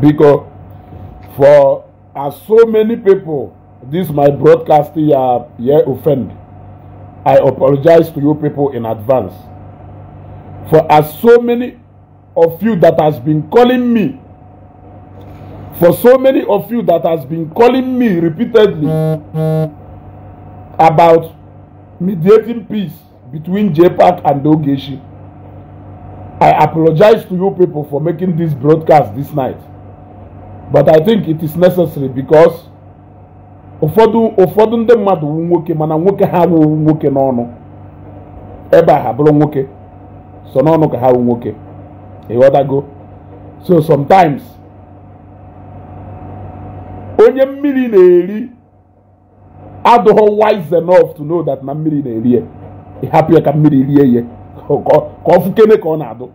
because for as so many people this my broadcast here here offend i apologize to you people in advance for as so many of you that has been calling me for so many of you that has been calling me repeatedly about mediating peace between JPAC and Ogechi. I apologize to you people for making this broadcast this night. but i think it is necessary because ụfọdụ ụfọdụ ndị mmadụ wu nwoke mana nwoke ha wuwu nwoke n'ọnụ ebe a ha bụrụ nwoke so n'ọnụ ka ha wu nwoke ịghọtago so sometimes onye mmiri na-eri adụghọ wise enough to know that na mmiri na-eri ya ịhapụ ya ka mmiri rie ya ka ọ fụkene ka ọ na-adụ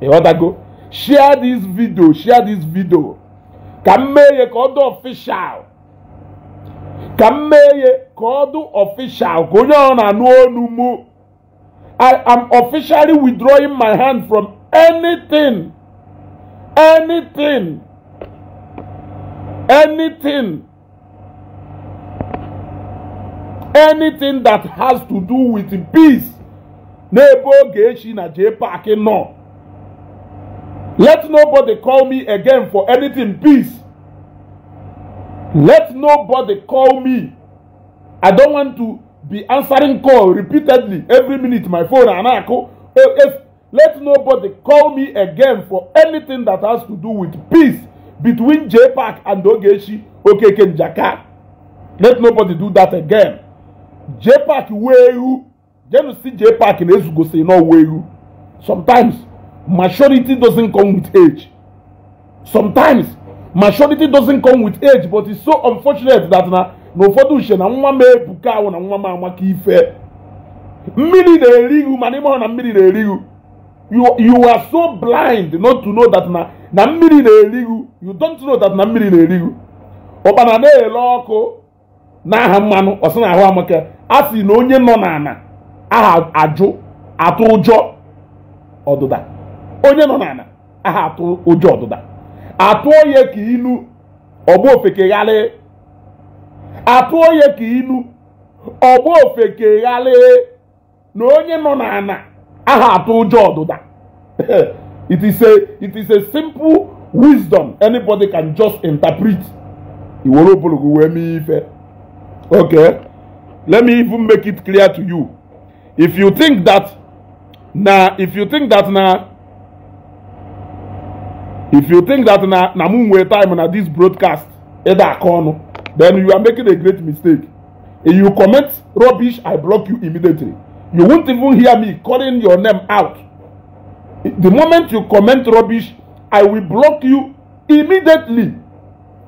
ịghọtago share this video share this video ka mmee ya ka ọ dị ọfishal ka mmee ya ka ọ dị ọfishal ka onye ọ na-anụ ọnụ mụ I am officially withdrawing my hand from anything anything anything anything that has to do with peace n'ebe oge echi na jee paaki nọ. Let nobody call me again for anything, please. Let nobody call me. I don't want to be answering call repeatedly every minute my phone and I call. let nobody call me again for anything that has to do with peace between JPAC and Ogechi Okeke Njaka. Let nobody do that again. JPAC wehu. Jenu si JPAC na No, where you? Sometimes maturity doesn't come with age. Sometimes, maturity doesn't come with age, but it's so unfortunate that na n'ụfọdụ uche na nwa m ebuka ahụ na nwa m amaka ife mmiri na-eri ma n'ime ime na mmiri na-eri ihu you are so blind not to know that na na mmiri na-eri you don't know that na mmiri na-eri ihu ọkpana na-ele ọkụ n'aha mmanụ ọsị na ahụ amaka a sị na onye nọ n'ala aha ajụ atụ ọdụda onye nọ n'ala aha atụ ụjọ ọdụda atụọ ya ka ilu ọgba ofekegharị atụọ ya ka ilu ọgba ofekegharị na onye nọ n'ala aha atụ ụjọ ọdụda it is a it is a simple wisdom anybody can just interpret iwere obologo wee mee ife okay let me even make it clear to you if you think that na if you think that na if you think that na na mu nwere time na this broadcast either aka ọnụ then you are making a great mistake if you comment rubbish i block you immediately you won't even hear me calling your name out the moment you comment rubbish i will block you immediately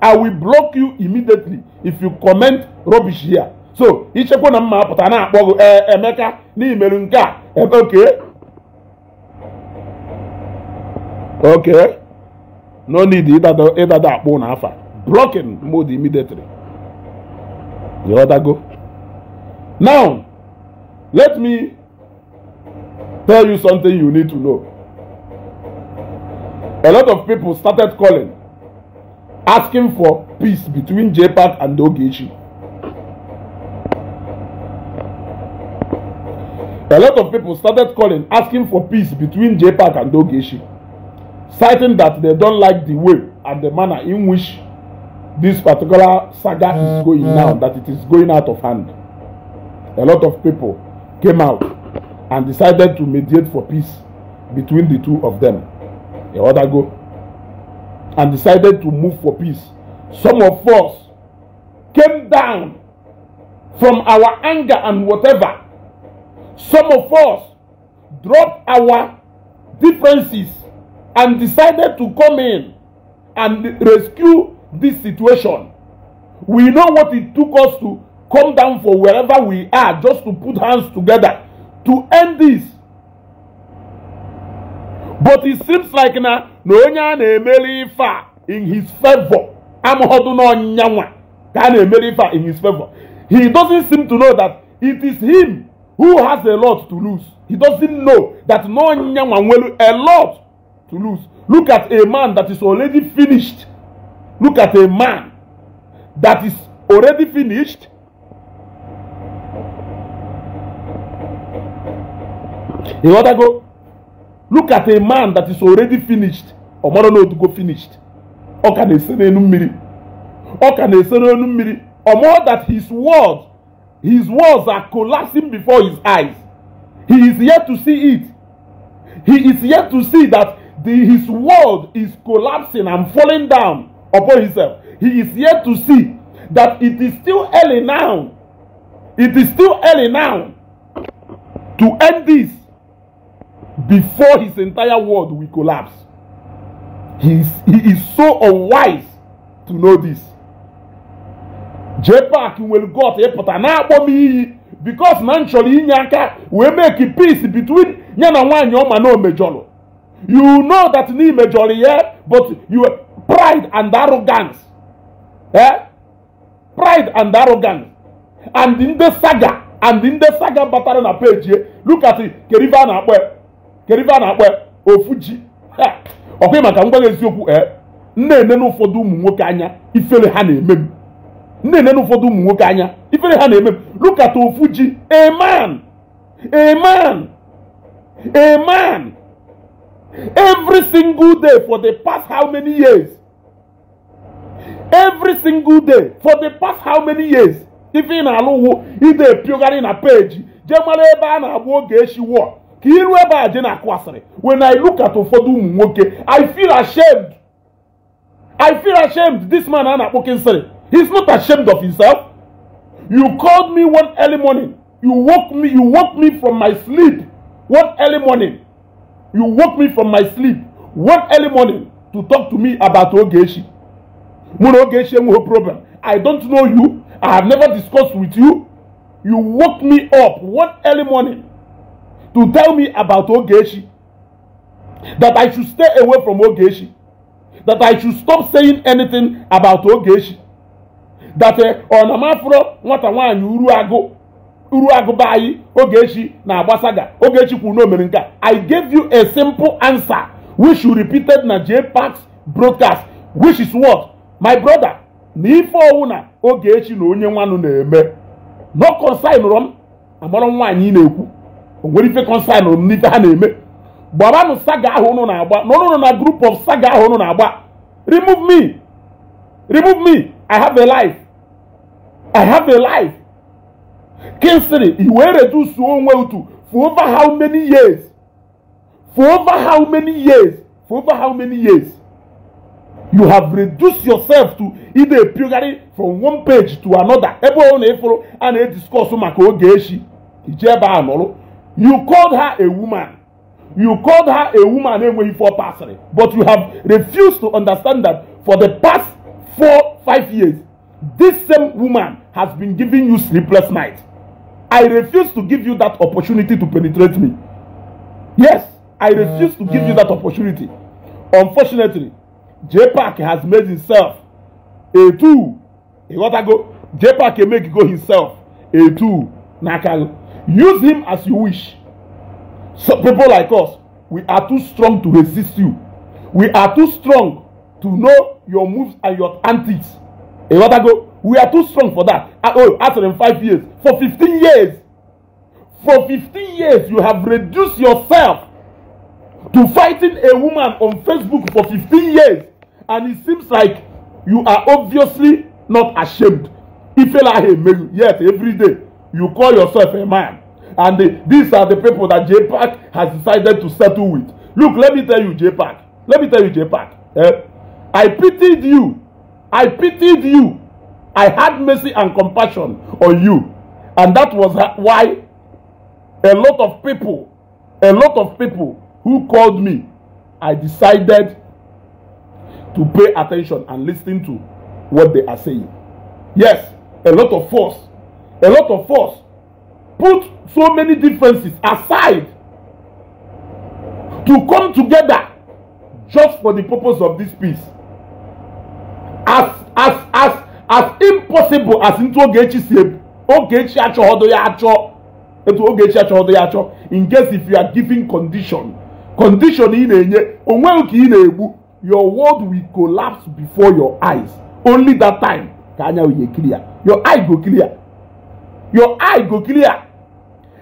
i will block you immediately if you comment rubbish here so ichekwa na mma apụta na-akpọ eh, emeka n'imeru nke a ebe eh, okay. okay. No need either, the, either that bone alpha. Blocking mode immediately. You other go. Now, let me tell you something you need to know. A lot of people started calling, asking for peace between JPAC and Dogechi. A lot of people started calling, asking for peace between JPAC and Dogechi. citing that they don't like the way and the manner in which this particular saga is mm, going mm. now, that it is going out of hand. A lot of people came out and decided to mediate for peace between the two of them a while go? and decided to move for peace. Some of us came down from our anger and whatever. Some of us dropped our differences and decided to come in and rescue this situation. We know what it took us to come down for wherever we are just to put hands together to end this. But it seems like na na onye na-emeli in his favor amụhọdụ n'ọnyanwa ka a emeli ife in his favor. He doesn't seem to know that it is him who has a lot to lose. He doesn't know that n'ọnyanwa nwere a lot to lose. Look at a man that is already finished. Look at a man that is already finished. You want to go? Look at a man that is already finished. Ọmọdé náà tó go finished. Ọ ka na-ese n'enu mmiri. Ọ ka na-ese n'enu mmiri. Ọmọ that his words his words are collapsing before his eyes. He is yet to see it. He is yet to see that the, his world is collapsing and falling down upon himself, he is yet to see that it is still early now. It is still early now to end this before his entire world will collapse. He is, he is so unwise to know this. will because naturally nchọrọ inye make peace between ya and nwaanyị ọma You know that ni majority, yeah, but you pride and arrogance. Eh? Pride and arrogance. And in the saga, and in the saga batara na page, look at it. Keriva na akwe. Keriva na akwe. Ofuji. Ọkwa maka ngwa eziokwu eh. Nne-ene n'ụfọdụ ụmụ nwoke anya ifele ha na-eme m. Nne-ene n'ụfọdụ ụmụ nwoke anya ifele ha na-eme m. Look at Ofuji. A man. A man. A man. Every single day for the past how many years? Every single day for the past how many years? If ị na-alụ ide epiogarị na peji jee mara a na-agba oge echi wụọ ka iru ebe a je na when I look at ụfọdụ Moke, I feel ashamed I feel ashamed this man a na he's not ashamed of himself you called me one early morning you woke me you woke me from my sleep one early morning you woke me from my sleep one early morning to talk to me about Ogechi. Mu na Ogechi enweghị problem. I don't know you. I have never discussed with you. You woke me up one early morning to tell me about Ogechi. That I should stay away from Ogechi. That I should stop saying anything about Ogechi. That uh, eh, Ọnamafro nwata nwaanyị uru uru agụba anyị Ogechi na-agbasaga Ogechi kwuru na nke a I gave you a simple answer which you repeated na JPACS broadcast which is what my brother na ife ọwụ na Ogechi na onye nwanụ na-eme no consign rom amarọ nwaanyị na-ekwu o nwere ife consign m n'ife ha na-eme gbabanụ saga ahụ ụnụ na-agba na na group of saga ahụ ụnụ na-agba remove me remove me I have a life I have a life Kingsley, he will reduce to one well to for over how many years? For over how many years? For over how many years? You have reduced yourself to either purely from one page to another. Everyone follow and they discuss maka oge echi. Ijeba You called her a woman. You called her a woman enweghị four pasịrị. But you have refused to understand that for the past four, five years, this same woman has been giving you sleepless nights. I refuse to give you that opportunity to penetrate me. Yes, I refuse to give you that opportunity. Unfortunately, JPAC has made himself a two. You gotta go. JPAC can make go himself a two. Nakal. Use him as you wish. So people like us, we are too strong to resist you. We are too strong to know your moves and your antics. You got go. we are too strong for that ah, oh after them five years for fifteen years for fifteen years you have reduced yourself to fighting a woman on facebook for fifteen years and it seems like you are obviously not ashamed ifealahi emeyu yet every day you call yourself a man and the, these are the people that jpac has decided to settle with look let me tell you jpac let me tell you jpac eh? i pitied you i pitied you I had mercy and compassion on you. And that was why a lot of people, a lot of people who called me, I decided to pay attention and listen to what they are saying. Yes, a lot of force, a lot of force put so many differences aside to come together just for the purpose of this peace. As, as, as as impossible as ntụ Ogechi si ebu Ogechi achọghọdo ya achọ etu Ogechi achọghọdo ya achọ in case if you are giving condition condition ị na-enye onweghị ka ị na-egbu your world will collapse before your eyes only that time ka anya wee clear your eye go clear your eye go clear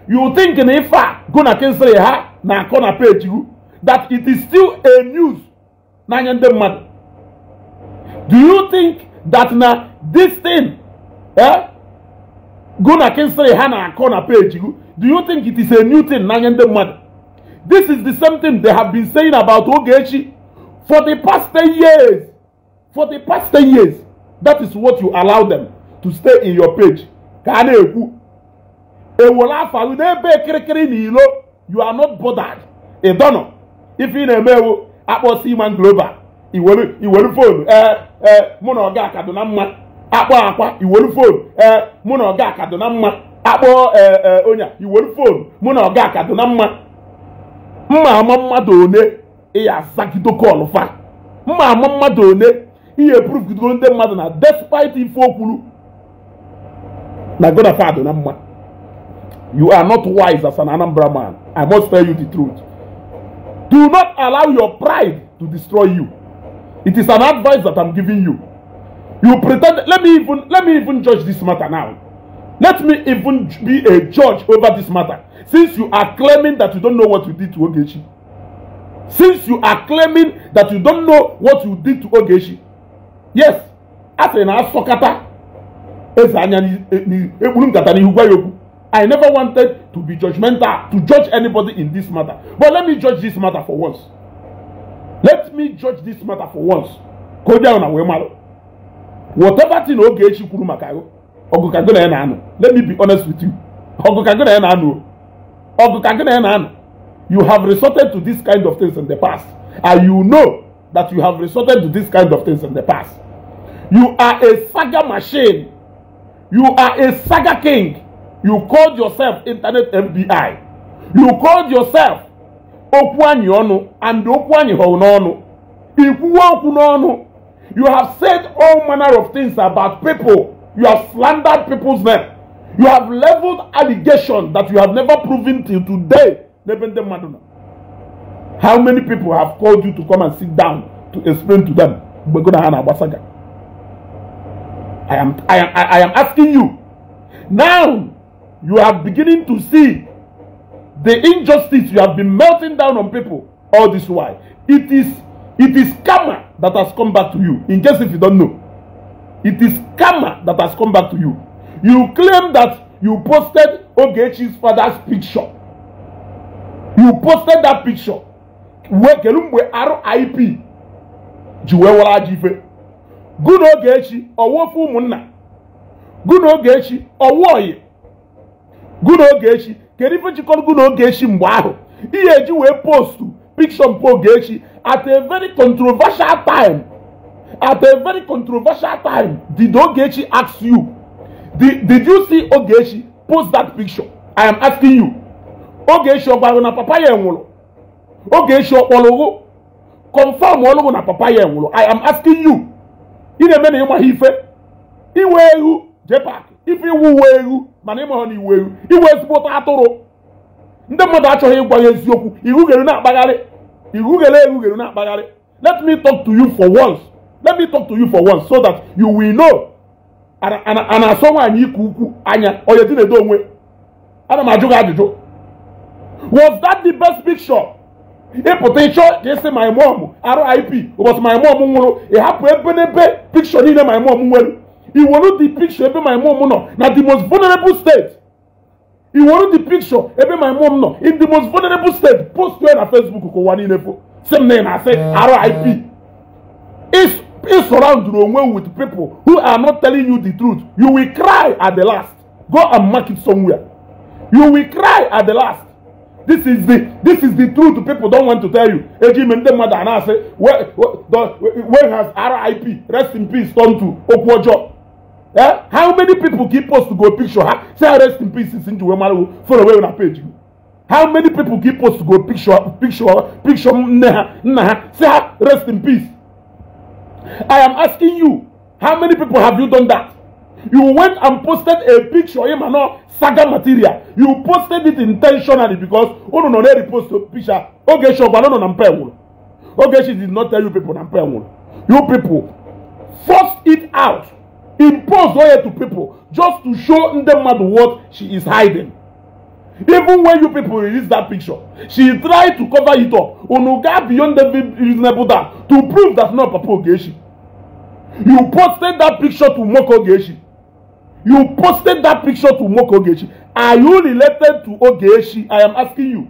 you think na ife go na kensịrị ha na-akọ na page ru that it is still a news n'anya ndị mmadụ do you think that na this thing eh go na kinsiri ha na-akọ na page do you think it is a new thing n'anya ndị mmadụ this is the same thing they have been saying about Ogechi for the past 10 years for the past 10 years that is what you allow them to stay in your page ka a na-ekwu ewola afa gị n'ebe kirikiri na ilo you are not bothered ịdọnọ ife ị na-eme ewu akpọsi iman global iwere fonu ee mụ na ọga kaduna mma akpọ akwa iwolu fon mụ na ọga kaduna mma Akpọ ee e, onye iwolu fon mụ na ọga kaduna mma mma ama mmadụ one ịya azagide kọlụ fa mma ama mmadụ one ihe prụfgidoro ndị mmadụ na despite ife okwuru na godafa adụ na mma you are not wise as an anambra man i must tell you the truth do not allow your pride to destroy you It is an advice that I'm giving you. You pretend, let me even, let me even judge this matter now. Let me even be a judge over this matter. Since you are claiming that you don't know what you did to Ogechi. Since you are claiming that you don't know what you did to Ogechi. Yes, as in Asokata, eze anya ekpuru nkata n'ihu gwa ya I never wanted to be judgmental to judge anybody in this matter. But let me judge this matter for once let me judge this matter for once ka o jee na wee whatever thing oge echi kwuru maka ọgụ ka gị na ya na-anụ let me be honest with you ọgụ ka gị na ya na-anụ ọgụ ka gị na ya na-anụ you have resorted to this kind of things in the past and you know that you have resorted to this kind of things in the past you are a saga machine you are a saga king you called yourself internet FBI. you called yourself anyị ọnụ and anyị you have said all manner of things about people you have slandered people's name you have leveled allegations that you have never proven till today how many people have called you to come and sit down to explain to them I am, I, am, I am asking you now you are beginning to see the injustice you have been melting down on people all this while. It is it is karma that has come back to you. In case if you don't know, it is karma that has come back to you. You claim that you posted Ogechi's father's picture. You posted that picture. Where Kelumbe RIP Jiwewala Jife. Good Ogechi, Owofu Munna. Good Ogechi, Owoye. Good Ogechi, kedu ife jikọrọgo na oge echi mgbe ahụ ihe eji wee postu pikshọ mpụ oge echi at a very controversial time at a very controversial time did ogechi ask you did, did you see ogechi post that picture i am asking you ogechi ọ gwara na papa ya nwụrụ ogechi ọ kpọrọ ụgụ confirm ọlụgụ na papa ya nwụrụ i am asking you ị na-eme na ịmaghị ife iwe eghu jepak ife iwu uwe eghu mana ịma ha na eru iwu ezigbote atụrụ ndị mmadụ achọghị ịgwa ya eziokwu irugheri na-akpagharị irugheri erugheri na-akpagharị let me talk to you for once let me talk to you for once so that you will know a na-asọ nwaanyị ike ukwu anya onye dị na-edo onwe ana m ajụ gị ajụjụ was that the best picture ịpụta ịchọ ka ịsị my mom rip ụbọchị my mom nwụrụ ịhapụ ebe n'ebe picture niile my mom nwere will the picture ebe my mom nọ Now the most vulnerable state will the picture ebe my mom nọ in the most vulnerable state post ya facebook ka wani nepo. same name I say rip ị surround onwe with people who are not telling you the truth you will cry at the last go and mark it somewhere you will cry at the last this is the this is the truth people don't want to tell you ejime ndị mmadụ na-asị where has rip rest in peace turn to okwu Eh? How many people keep us to go picture? Huh? Say ah, rest in peace since you were follow away on a page. How many people keep us to go picture, picture, picture, nah, nah, say ah, rest in peace. I am asking you, how many people have you done that? You went and posted a picture, You and saga material. You posted it intentionally because oh no, they repost a picture. Okay, sure, but no, no, no, Okay, she did not tell you people, You people, force it out. Impose oil to people just to show ndị what she is hiding even when you people release that picture she tried to cover it up unu beyond the reasonable doubt to prove that's not papa ogechi you posted that picture to moko ogechi you posted that picture to moko ogechi are you related to ogechi i am asking you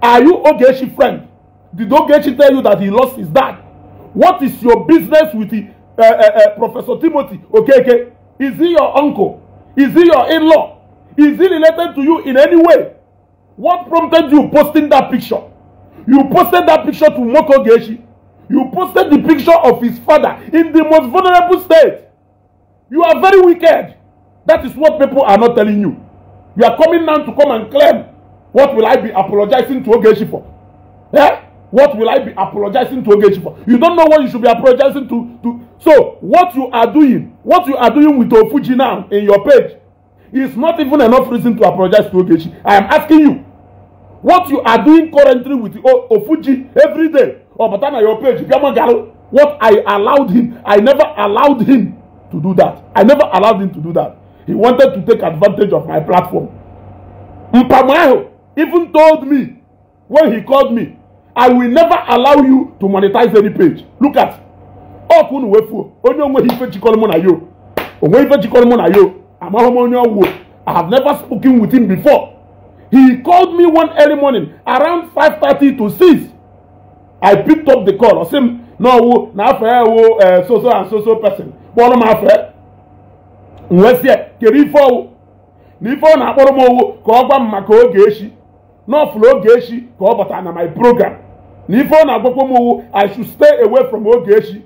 are you ogechi friend did ogechi tell you that he lost his dad what is your business with the uh, uh, Professor Timothy Okeke? Is he your uncle? Is he your in-law? Is he related to you in any way? What prompted you posting that picture? You posted that picture to Moko Geshi. You posted the picture of his father in the most vulnerable state. You are very wicked. That is what people are not telling you. You are coming now to come and claim. What will I be apologizing to Ogeshi for? Yeah? What will I be apologizing to Ogechi for? You don't know what you should be apologizing to, to. So, what you are doing, what you are doing with Ofuji now in your page, is not even enough reason to apologize to Ogechi. I am asking you, what you are doing currently with Ofuji every day, or oh, Batana your page, what I allowed him, I never allowed him to do that. I never allowed him to do that. He wanted to take advantage of my platform. Mpamayo even told me when he called me I will never allow you to monetize any page. Look at ọ kwụ na wefuo onye onweghị ife jikọrọ mụ na yo onweghị ife jikọrọ mụ na yo amaghị m onye ọgwụ I have never spoken with him before. He called me one early morning around 5:30 to 6. I picked up the call. Ọ sị m na ọwụ na afọ ya wo eh, so so and so so person kpọrọ m afọ ya. M wee sị ya kere ife ọwụ na ife ọ na-akpọrọ m ọwụ ka ọ gwa m maka oge echi. n'ọfụlụ oge echi ka ọ bata na my program na ife ọ na-agwakwa m i should stay away from oge echi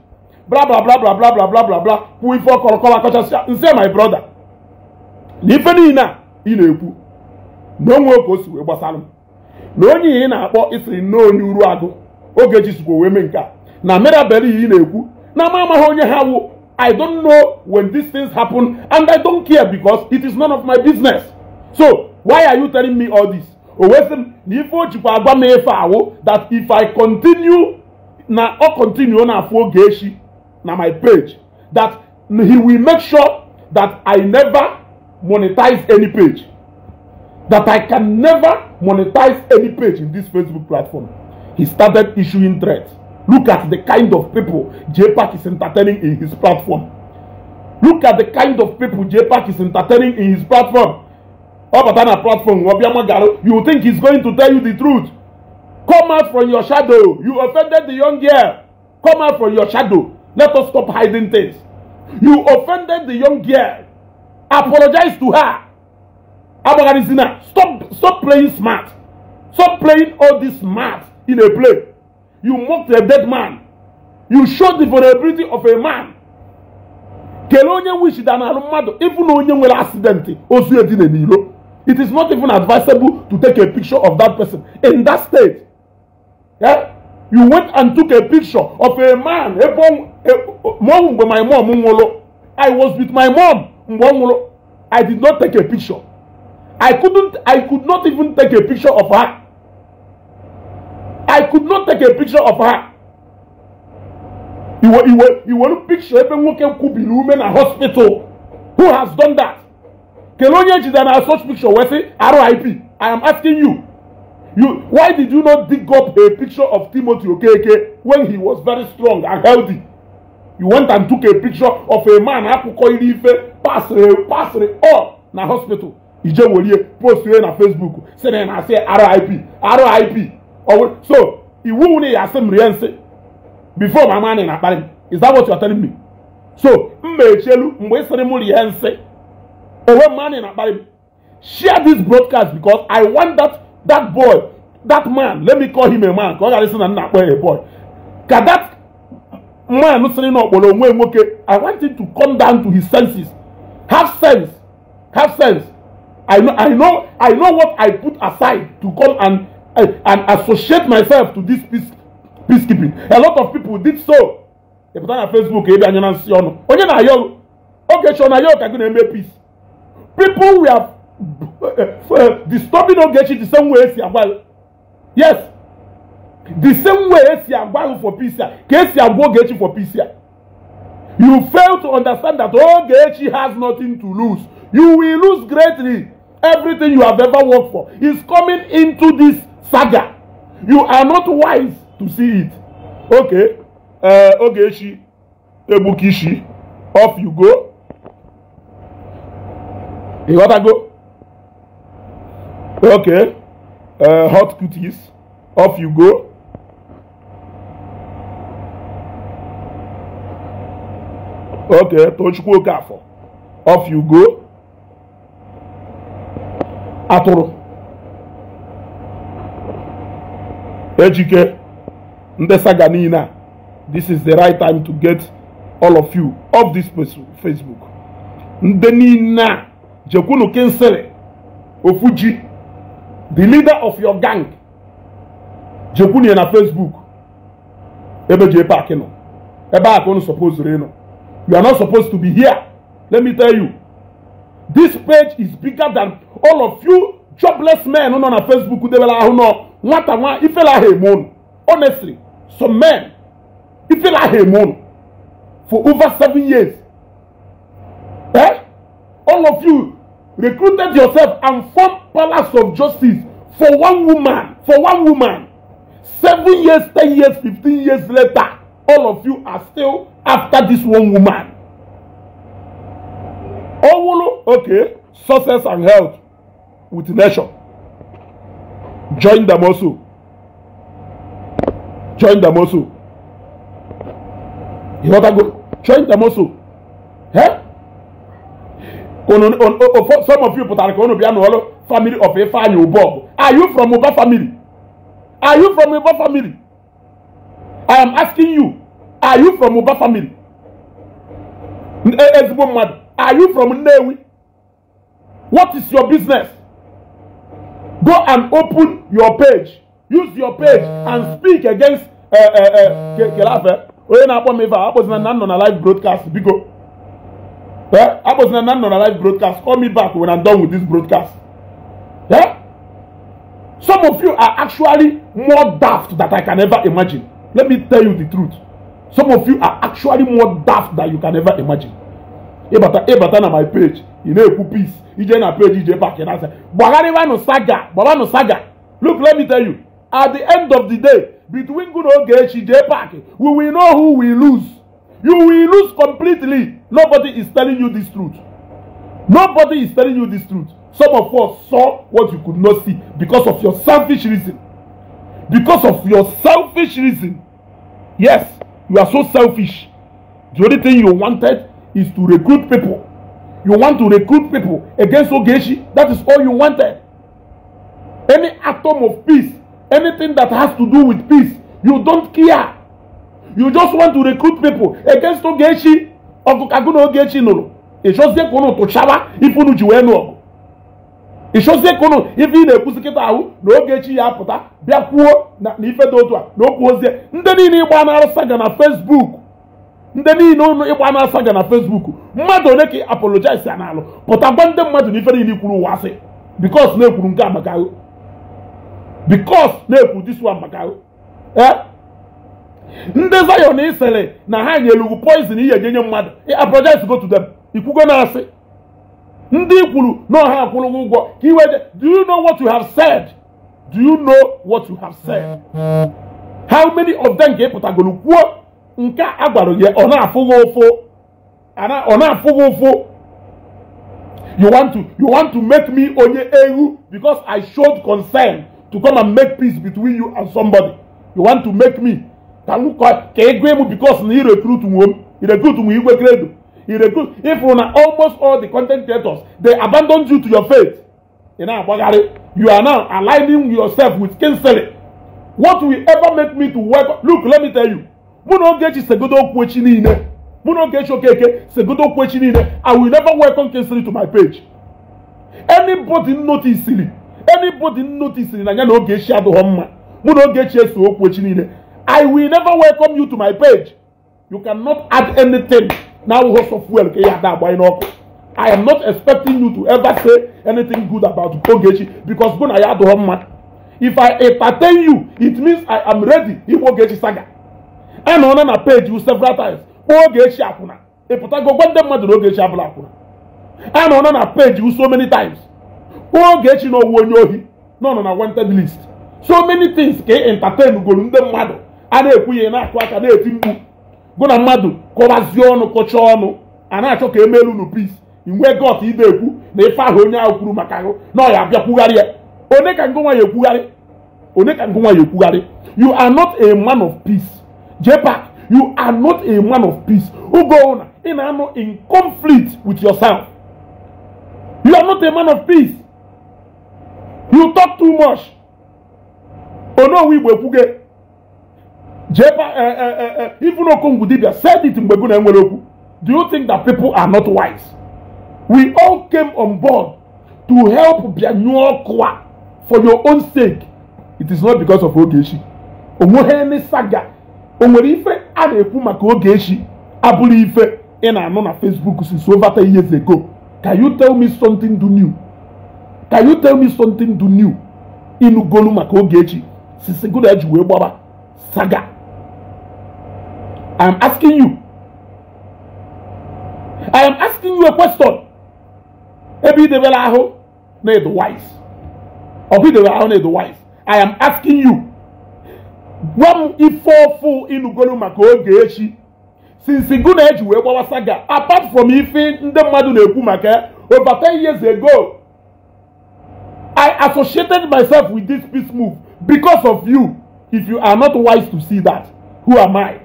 bla bla bla bla bla bla bla ife ọkọrọkọrọ akọchasịa nse my brother na ife niile a ị na-ekwu na onwe oge o si wee gbasara m na onye ihe ị na-akpọ isiri nnọọ onye uru agụ oge echi sikwa wee mee nke a na merabere ihe ị na-ekwu na ama amaghị onye ha wu i don't know when these things happen and i don't care because it is none of my business so why are you telling me all this owesi m na ife o jikwa agwa m efe awụ that if i continue na ọ continue na afụ oge echi na my page that he will make sure that i never monetize any page that i can never monetize any page in this facebook platform he started issuing threats look at the kind of people jpac is entertaining in his platform look at the kind of people jpac is entertaining in his platform ọbata na platform ọ bịa magara you think he's going to tell you the truth come out from your shadow you offended the young girl come out from your shadow let us stop hiding things you offended the young girl apologize to her agbagharizina stop stop playing smart stop playing all this smart in a play you mocked a dead man you showed the vulnerability of a man kelee onye wish dana alụ mmadụ ịbụ na onye nwere accident ozu edina n'ilo it is not even advisable to take a picture of that person in that state yeah? you went and took a picture of a man a mom mgbe my mom nwụrụ i was with my mom mgbe i did not take a picture i couldn't i could not even take a picture of her i could not take a picture of her You you were iwe iwe iwe picture ebe nwoke kwubiri ume a hospital who has done that Kelonian is an assault picture wey say RIP. I am asking you. You why did you not dig up a picture of Timothy Okeke when he was very strong and healthy? You went and took a picture of a man akụkọ iri ife pasịrị eh, pasịrị all eh, oh, na hospital. Ije welie post na Facebook sị na ị na-asị RIP RIP. Oh, so iwu nwunye ya asị m rie nsị before mama anyị na-akparị m. Is that what you are telling me? So m ma echielu mgbe ị sịrị m rie nsị Owe man in Abaribe. Share this broadcast because I want that that boy, that man, let me call him a man, because I listen and not a boy. Can that man listening up okay, I want him to come down to his senses. Have sense. Have sense. I know I know I know what I put aside to come and eh, and associate myself to this peace peacekeeping. A lot of people did so. They put on Facebook, ebe anya na nsi ọnụ. Onye na-ayọ oge chọ na ayọ ka eme peace. People we are uh, disturbing uh, Ogechi the same way well, Yes. The same way Esiagwalu for peace here. Esiagwalu Ogechi for peace here. You fail to understand that Ogechi has nothing to lose. You will lose greatly. Everything you have ever worked for is coming into this saga. You are not wise to see it. Okay. Uh, Ogechi, Ebukishi, off you go. You gotta go. Okay. Uh, hot cooties. Off you go. Okay, Tochukwu Okafor. Off you go. Atoro. This is the right time to get all of you off this Facebook. Ndị Jekunu Kinsele Ofuji, the leader of your gang, Jekunu na Facebook, ebe je park no. Ebe a kono supposed to no. You are not supposed to be here. Let me tell you. This page is bigger than all of you jobless men who on Facebook who debela who no what am I e if la hemon. Honestly, some men if e la hemon for over seven years. Eh? All of you recruited yourself and formed palace of justice for one woman for one woman seven years ten years fifteen years later all of you are still after this one woman owolo okay success and health with nation join them also join them also you know that go join them also eh ono o some of you pụtara ka unu bịa n'ọlụ family of Ifeanyi Ubọgụ are you from Uba family are you from Uba family I am asking you are you from Uba family ezigbo eh, eh, mmadụ are you from Nnewi what is your business go and open your page use your page and speak against eh, kelafe onye na-akpọ m ife a akpọzina na m nọ na live broadcast biko Yeah? I was in an live broadcast. Call me back when I'm done with this broadcast. Yeah? Some of you are actually more daft that I can ever imagine. Let me tell you the truth. Some of you are actually more daft that you can ever imagine. Ebata Ebata na my page. You know peace. Ije na page Ije back and I say, Bagariwa no saga, Baba no saga. Look, let me tell you. At the end of the day, between good old Gechi back. we will know who we lose. You will lose completely. Nobody is telling you this truth. Nobody is telling you this truth. Some of us saw what you could not see because of your selfish reason. Because of your selfish reason. Yes, you are so selfish. The only thing you wanted is to recruit people. You want to recruit people against Ogeshi. That is all you wanted. Any atom of peace, anything that has to do with peace, you don't care. You just want to recruit people against Ogeshi. ọgụ ka gụ na Ogechi nụrụ ịchọzie ka ụnụ tụchaba ife unu ji wee nụ ọgụ ịchọzie ka ụnụ ife ị na-ekwuzi kịta ahụ na Ogechi ya apụta bịa kwuo na ife dị otu a na okwu ozie ndị niile ịgba na-arụsa ga na fesbuk ndị niile ụnụ ịgba na-asa ga na fesbuk mmadụ one ka apologize ya n'alụ pụta gwa ndị mmadụ na ife niile kwuru ụwa asị because na-ekwuru nke a maka ahụ because na-ekwu this one maka ahụ eh? ndị Zion isere na ha nyelugwu poizin ihe ga-enye mmadụ apologize go to dem ikwugo na asị ndị kwuru na ọha akwụrụgwọ ụgwọ ka iwe do you know what you have said do you know what you have said how many of them ka ị kwuo nke a gwara gị ọ na-afụ gị ụfụ ọ na-afụ gị ụfụ you want to you want to make me onye ewu because I showed concern to come and make peace between you and somebody you want to make me ka m ka ego ịmụ bikos na irekrut nwo m irekrut nwo igwe kredo irekrut ịfụrụ na almost all the content creators they abandon you to your faith ị na-agbagharị you are now aligning yourself with kinsley what will ever make me to work look let me tell you mụ na Ogechi segodo okwu echi niile mụ na Ogechi Okeke segodo okwu echi niile i will never welcome kinsley to my page anybody noticing anybody noticing na ya na Ogechi adịghọ mma mụ na Ogechi eso okwu echi niile I will never welcome you to my page. You cannot add anything. Now, host of well, okay, that boy, no. I am not expecting you to ever say anything good about Ogechi because when I had one if I entertain you, it means I am ready If Ogechi saga. And on a page you several times. Ogechi Akuna. If I go one them mother Ogechi Abula Akuna. And on a page you so many times. Ogechi no one no no na wanted list. So many things can entertain you go in the mother. a na ekwu ihe na-akụ aka na-eti mkpu gụ na mmadụ kọwazie ọnụ kọcha ọnụ a na-achọ ka emelu unu pis inwe got idekwu na ife ahụ onye ahụ kwuru maka ahụ na ọ ya abịa kwugharị ya onye ka ngụ nwaanyị ekwugharị onye ka ngụ nwaanyị ekwugharị you are not a man of peace jepak you are not a man of peace ugo ụna, ị na-anọ in conflict with yourself you are not a man of peace you talk too much onowu igbo ekwuge Eh, eh, eh, even Okongwu Dibia said it in Beguna Enweloku. Do you think that people are not wise? We all came on board to help Bianyokwa for your own sake. It is not because of Ogechi. eme saga. nwere ife a na-ekwu maka Ogechi abụrụ ife ị na-anụ na Facebook since over 10 years ago. Can you tell me something do new? Can you tell me something do new? Ịnụgolu maka Ogechi since Godaji wee gbaba saga. I am asking you. I am asking you a question. Every they were the wise. Or be they the wise. I am asking you. Gwam ifofu fu maka oge echi. Since gụ na-eji saga apart from ife ndị mmadụ over 10 years ago I associated myself with this peace move because of you. If you are not wise to see that, who am I?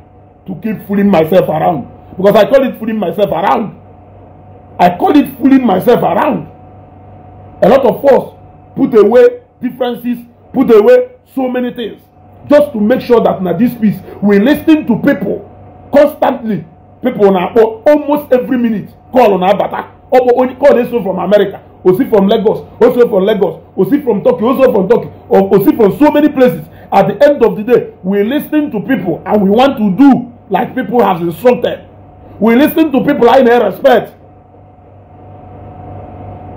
to keep fooling myself around because I call it fooling myself around. I call it fooling myself around. A lot of us put away differences, put away so many things just to make sure that na this peace we lis ten to people constantly people na akpọ almost every minute call na abata ọkpọ onye call dey so from America osi from Lagos osi from Lagos osi from Turkey osi from Turkey osi from so many places at the end of the day we lis ten to people and we want to do like people have insulted, We listened to people in their respect.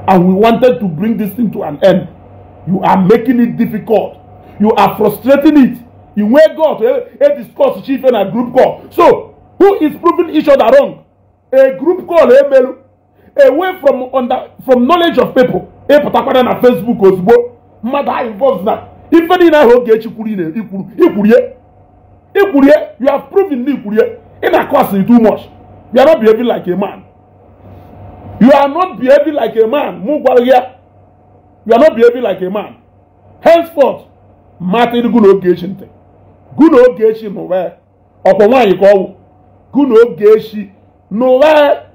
And we wanted to bring this thing to an end. You are making it difficult. You are frustrating it. You wake up a discuss chief and a group call. So, who is proving each other wrong? A group call, a eh, mail, away from under from knowledge of people. Eh, a particular na Facebook ozugbo. Mmadụ involves that. na. Ife niile ahụ oge you could you could ya. ikwurie you have proven Ikpurie. In a costing too much. You are not behaving like a man. You are not behaving like a man. Mugwalia. You are not behaving like a man. Henceforth, Martin Gunogation. Gunogation, where? Upon one you call Gunogation. Nowhere.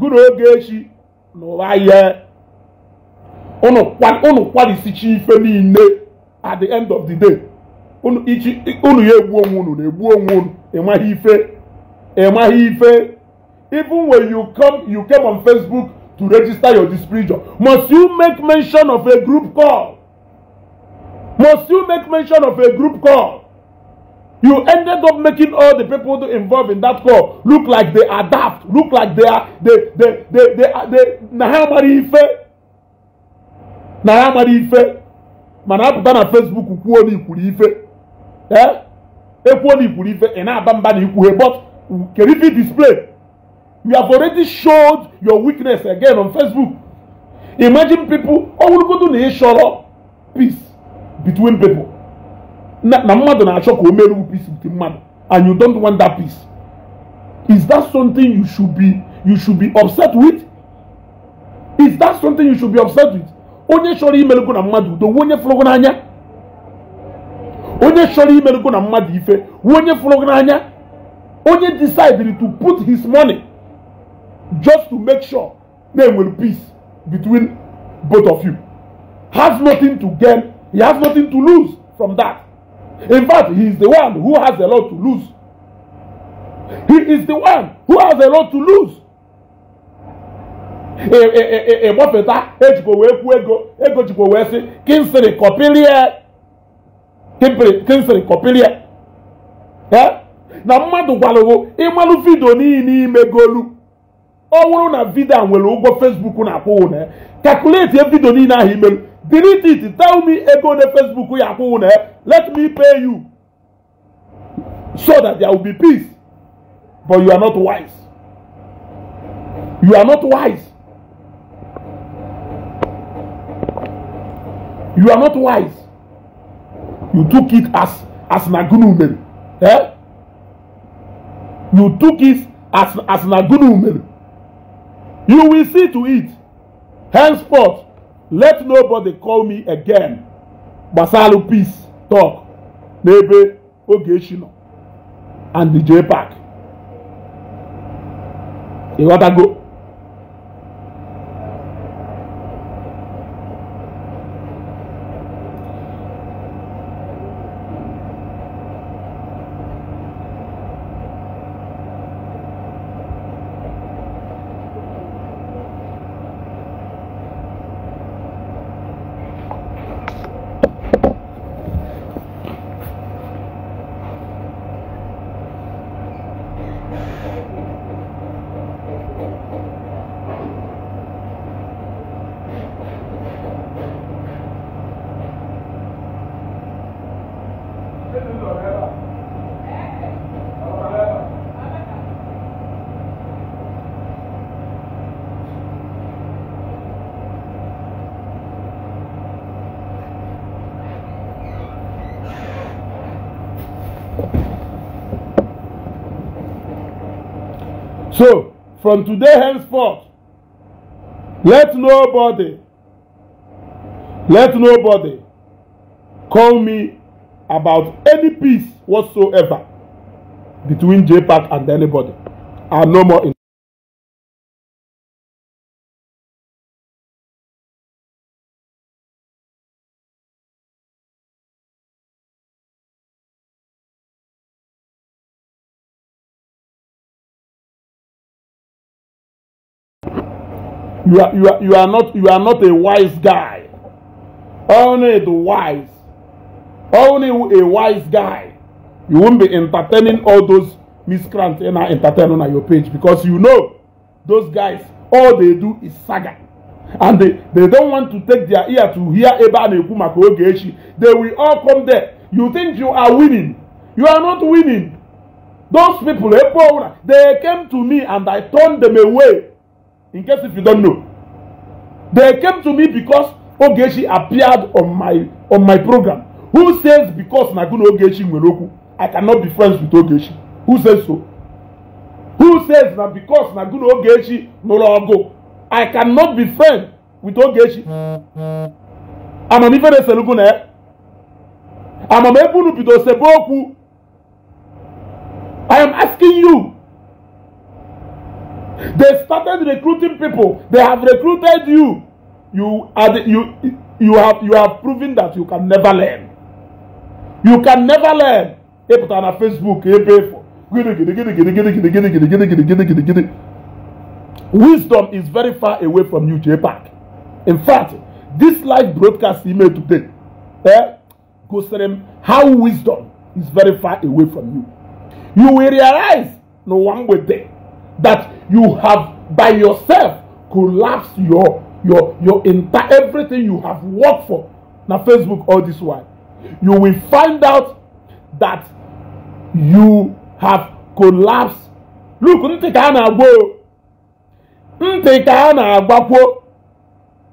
Gunogation. Nowhere. Unu kwadisichi ife niile at the end of the day. unu ya egbu onwe unu na-egbu onwe unu ịmaghị ife ịmaghị ife even when you come you came on facebook to register your displeasure must you make mention of a group call must you make mention of a group call you ended up making all the people involved in that call look like they adapt, look like they are they they they they are na ha amara ife na ha amara ife mana apụta na facebook kwuo na ikwuru ife Eh? ekwuo na iburu ife ị na-aba mba na ikwughe but kerifi display you have already showed your weakness again on facebook imagine people ọ wụrụgodo na ịchọrọ peace between people na na mmadụ na-achọ ka o meruo peace with mmadụ and you don't want that peace is that something you should be you should be upset with is that something you should be upset with onye chọrọ imerugo na mmadụ udo onye fụrụgo n'anya onye chọrọ imerụgo na mmadụ ife wụ onye fụrụ gị n'anya onye decided to put his money just to make sure na enwere peace between both of you has nothing to gain he has nothing to lose from that in fact he is the one who has a lot to lose he is the one who has a lot to lose ịgbafeta e, e, e, ejikwa wee kwuo ego ego jikwa wee sị kinsiri kọpilie kemfere kọpịrịa na mmadụ gwalụgo ịmalụ vidio n'ihi n'ime golu ọ bụrụ na vidio a nwere ụgwọ fesbuk na-akwụwụ na ya calculate ya vidio niile ahụ imelu delete it tell me ego na facebook ya akwụwụ na ya let me pay you so that there will be peace but you are not wise you are not wise you are not wise You took it as as an agunu Eh? You took it as as an agunu You will see to it. Henceforth, let nobody call me again. Basalu peace talk. Nebe Ogeshino and the J Park. You gotta go. From today henceforth, let nobody, let nobody call me about any peace whatsoever between JPAC and anybody. I'm no more in. you are, you are, you are not you are not a wise guy. Only the wise. Only a wise guy. You won't be entertaining all those miscreants and I entertaining on your page because you know those guys, all they do is saga. And they, they don't want to take their ear to hear Eba Nekumako They will all come there. You think you are winning. You are not winning. Those people, they came to me and I turned them away. in case if you don't know. They came to me because Ogechi appeared on my on my program. Who says because Naguna Ogechi Nweloku, I cannot be friends with Ogechi? Who says so? Who says that because Naguna Ogechi Nologo, I cannot be friends with Ogechi? Amam ife na-ese lugu na ya. Amam ebe unu bido sebe okwu. I am asking you They started recruiting people. They have recruited you. You are the, you you have you have proven that you can never learn. You can never learn. Hey, put on a Facebook, hey, pay for. Wisdom is very far away from you, j JPAC. In fact, this live broadcast email today eh, goes to them how wisdom is very far away from you. You will realize no one will there. that you have by yourself collapsed your your your entire everything you have worked for na facebook all this while you will find out that you have collapsed look ntị ka a na-agba o ntị ka a na-agbakwo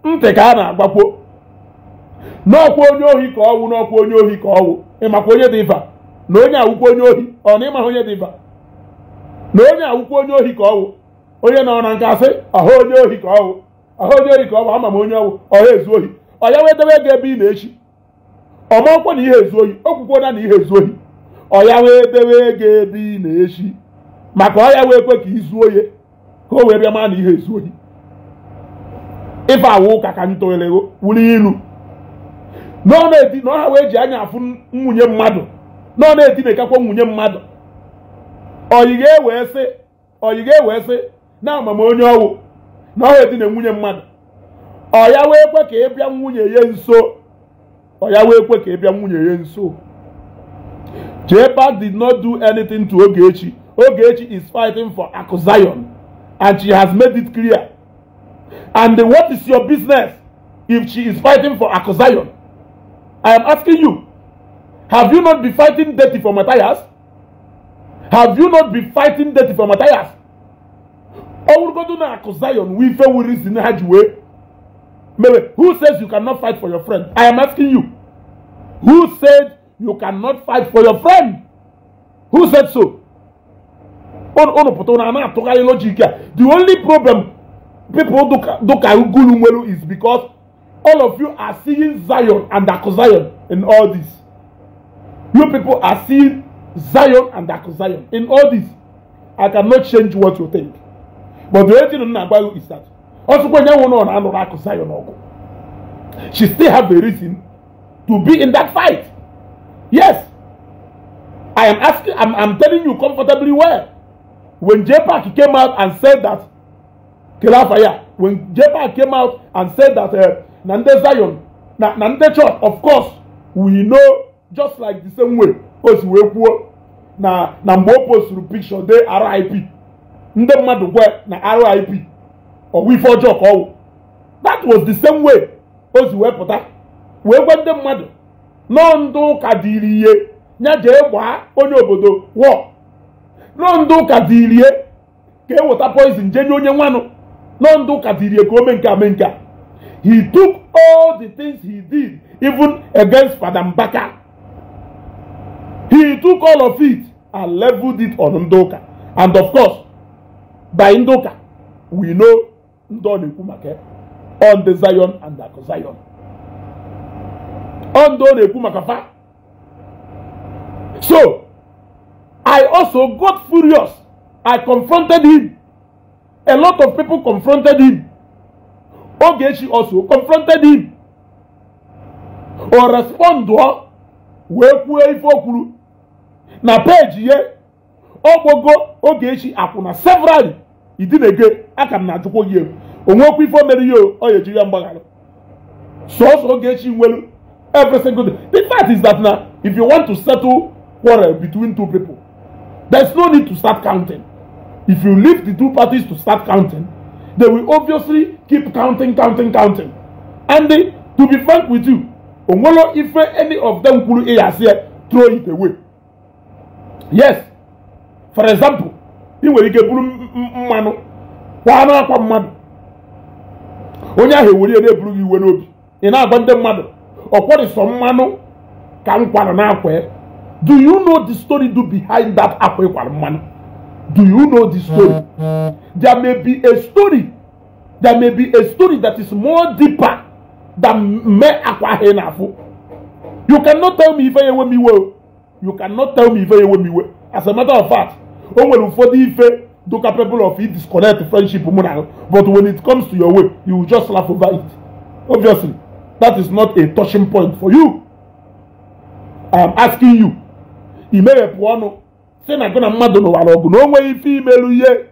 ntị ka na-agbakwo n'ọkwa onye ohi ka ọwụ n'ọkwa onye ohi ka ọwụ ịmakwa onye dị ifa na onye awụkwa onye ohi ọ na ịmaha onye dị ifa na onye awụkwa onye ohi ka ọwụ onye nọ na nka asị ọha onye ohi ka ọwụ ọha onye ohi ka bụ ama m onye ọwụ ọha ezu ohi ọ ya wedebe ego ebe ị na-echi ọmankwa na ihe ezu ohi okwukwona na na ihe ezu ohi ọ ya wee dewe ego ebe ị na-echi maka ọ ya wee kwe ka izu ohi ka o wee bịa maa na ihe ezu ohi ife awụ ụka ka ntụere wuru ilu ọha wee ji anya afụ nwunye mmadụ ọ na-edinekakwa nwunye mmadụ ọyị ga sị ọyị ga sị na amam onye ọwụ na ọ edina nwunye mmadụ ọ wee kwe ka ị bịa nwunye ya nso ọ wee kwe ka ị bịa nwunye ya nso Jehpa did not do anything to Ogechi Ogechi is fighting for Akuzion and she has made it clear and what is your business if she is fighting for Akuzion I am asking you have you not been fighting dirty for Matthias Have you not been fighting death for Matthias? Ọwụrụgodo na akụ Zion wee ife wuri si na ha ji wee. who says you cannot fight for your friend? I am asking you. Who said you cannot fight for your friend? Who said so? Unu pụta na ana atụgharị The only problem people do ka ugulu is because all of you are seeing Zion and Akụ in all this. You people are seeing Zion and Akụ Zion. In all this, I cannot change what you think. But the only thing m na you is that ọtụkwa onye nwụrụ na anụrụ Akụ Zion ọgụ. She still have a reason to be in that fight. Yes, I am asking, I am telling you comfortably well. When JPAC came out and said that Kilafaya. when JPAC came out and said that uh, na ndị Zion na na church, of course, we know just like the same way. o si wee kwuo na na mgbe o posturu pikshọ de RIP ndị mmadụ gwe na RIP ọwụ ife ọjọọ ka ọwụ that was the same way o si wee pụta wee gwa ndị mmadụ nọọ ndị ụka ihe ya jee gbaa onye obodo wọ nọọ ndị ụka ihe ka e weta poizin jee nye onye nwanụ nọọ ndị ụka ihe ka o mee nke a mee nke a he took all did even against Fada Mbaka He took all of it and leveled it on Ndoka. And of course, by Ndoka, we know Ndoni Kumake on the Zion and the Zion. Ndoni Kumakafa. So, I also got furious. I confronted him. A lot of people confronted him. Ogechi also confronted him. Or respond to her. Wee kwuo ife o na peeji ya ogbogo Ogechi akwụna several idinege aka m na-ajụkwa gị egwu onwekwa ife o mere ihe ọ ya ejiri ya mgbaghara sọsọ Ogechi nwere every single day the fact is that na if you want to settle quarrel between two people there's no need to start counting if you leave the two parties to start counting they will obviously keep counting counting counting and they, to be frank with you onwere ife any of them kwuru ịyasị throw it away yes for example ị nwere ike buru mmanụ kwaa n'akwa mmadụ onye ahụ ewere na-eburu gị iwe n'obi ị na-agwa ndị mmadụ ọ kwọrịsọ mmanụ ka m kwara n'akwa do you know the story do behind that akwa ịkwara mmanụ do you know the story there may be a story there may be a story that is more deeper than me akwa ahụ ị na-afụ you cannot tell me ife ya enwe m iwe o you cannot tell me ife ewe m iwe as a matter of fact o nwere ụfọdụ ife do people of it disconnect friendship mụ na but when it comes to your way you just laugh over it obviously that is not a touching point for you i am asking you imeghepụ ọnụ si na gị na mmadụ n'ụwara ọgụ na o nweghị ife imelu ihe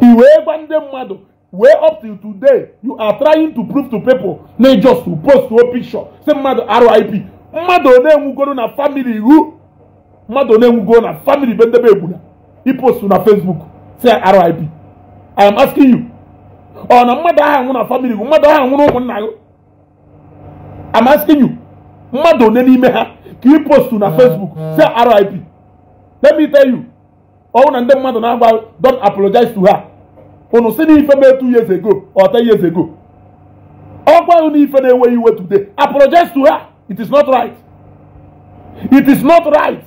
i wee gwa ndị mmadụ wee up till today you are trying to prove to people na just to post to picture si mmadụ RIP mmadụ one nwugoro na famili iwu mmadụ one nwugoro na famili be ndebe egwula ipostu na fesbuk si RIP I am asking you ọ na mmadụ ahụ nwụ na famili iwu mmadụ ahụ na ụmụnna gị I'm asking you mmadụ one n'ime ha ka ipostu na fesbuk si RIP let me tell you ọwụ na ndị mmadụ na-agba don apologize to her unu si n'ife ife mee two years ago ọ ten years ago ọkwa ahụ n'ife na-enweghị iwe today apologize to her It is not right. It is not right.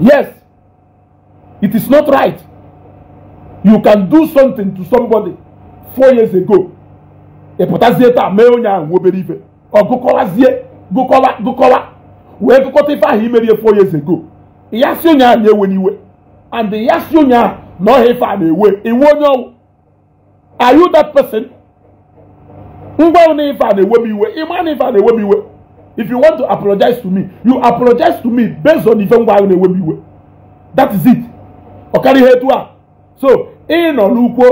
Yes, it is not right. You can do something to somebody four years ago. Ịpụtazie e taa mee onye ahụ nwa obere ife. Ọ gụkọwazie gụkọwa gụkọwa wee gụkọta ife ahụ imerie four years ago. Ya si onye ahụ na-ewe n'iwe. And ya si onye ahụ na ọha ife a na-ewe. Iwe onye ọwụ. Are you that person? ngwa na ife a na-ewe m iwe ịma na a na-ewe m iwe if you want to apologize to me you apologize to me based on ife ngwa ahụ na-ewe m iwe that is it ọ karị ihe etu a so ị nọ n'ukwu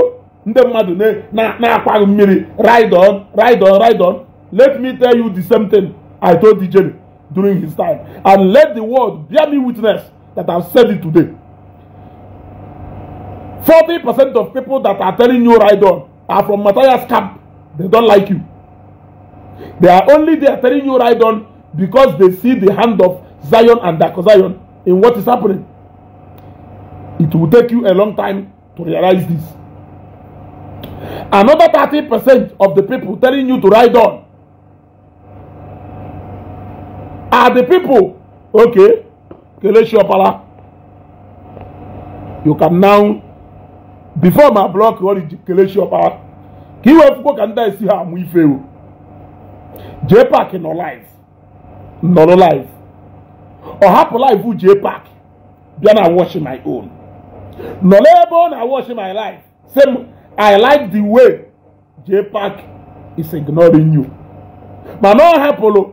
ndị mmadụ na-akwaghị mmiri ride on ride on ride on let me tell you the same thing i told dj during his time and let the world bear me witness that i said it today Forty percent of people that are telling you ride on are from matthias camp They don't like you. They are only there telling you right on because they see the hand of Zion and Dark Zion in what is happening. It will take you a long time to realize this. Another thirty percent of the people telling you to ride on are the people, okay, Keleshiopala. You can now, before my block, what is Keleshiopala? ka iwefugo ka ndị a esi ha amụ ife o jee paaki nọ live nọrọ live ọ hapụ live jee paaki bịa na watch my own nọrọ ebe ọ na watch my life same i like the way jee paaki is ignoring you mana ọ hapụrụ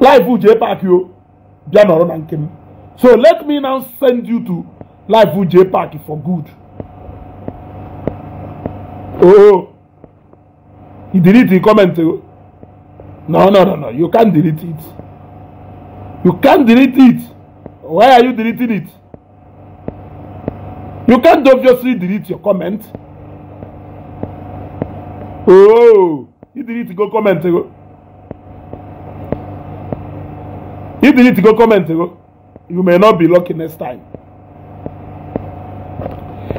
live jee paaki o bịa nọrọ na nke m so let me now send you to live jee paaki for good. Oh, you delete the comment. No, no, no, no. You can't delete it. You can't delete it. Why are you deleting it? You can't obviously delete your comment. Oh, you delete go comment. You delete go comment. You may not be lucky next time.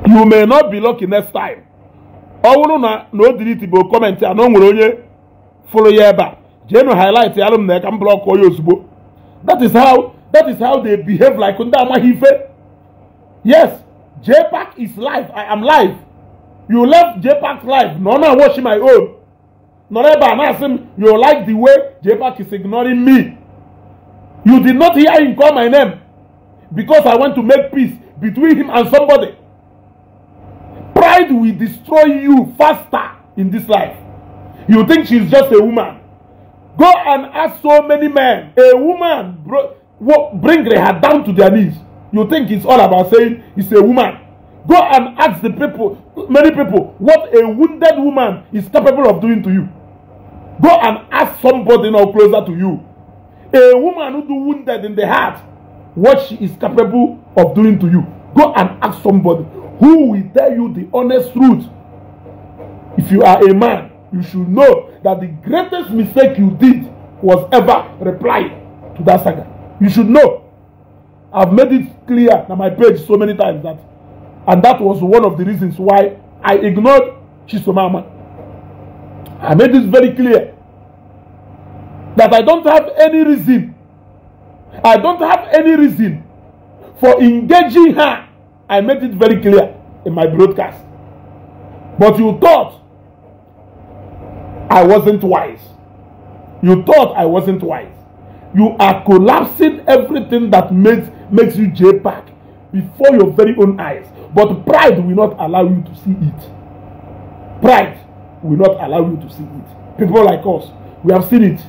You may not be lucky next time ọ bụrụ na na o diriti bụ kọmentị anọ nwere onye fụrụ ya ebe a jeenu highlight ya alụm na ka m blọk onye ozugbo that is how that is how they behave like ndị amaghị ife yes jpac is live i am live you left jpac live na ọ na-awashi my own nọrọ ebe a na-asị m you like the way jpac is ignoring me you did not hear him call my name because i want to make peace between him and somebody pride will destroy you faster in this life. You think she's just a woman. Go and ask so many men. A woman bring her down to their knees. You think it's all about saying it's a woman. Go and ask the people, many people, what a wounded woman is capable of doing to you. Go and ask somebody now closer to you. A woman who do wounded in the heart, what she is capable of doing to you. Go and ask somebody. who will tell you the honest truth if you are a man you should know that the greatest mistake you did was ever reply to that saga you should know i've made it clear na my page so many times that and that was one of the reasons why i ignored chisomama i made this very clear that i don't have any reason i don't have any reason for engaging her I made it very clear in my broadcast. But you thought I wasn't wise. You thought I wasn't wise. You are collapsing everything that makes, makes you JPAC before your very own eyes. But pride will not allow you to see it. Pride will not allow you to see it. People like us, we have seen it.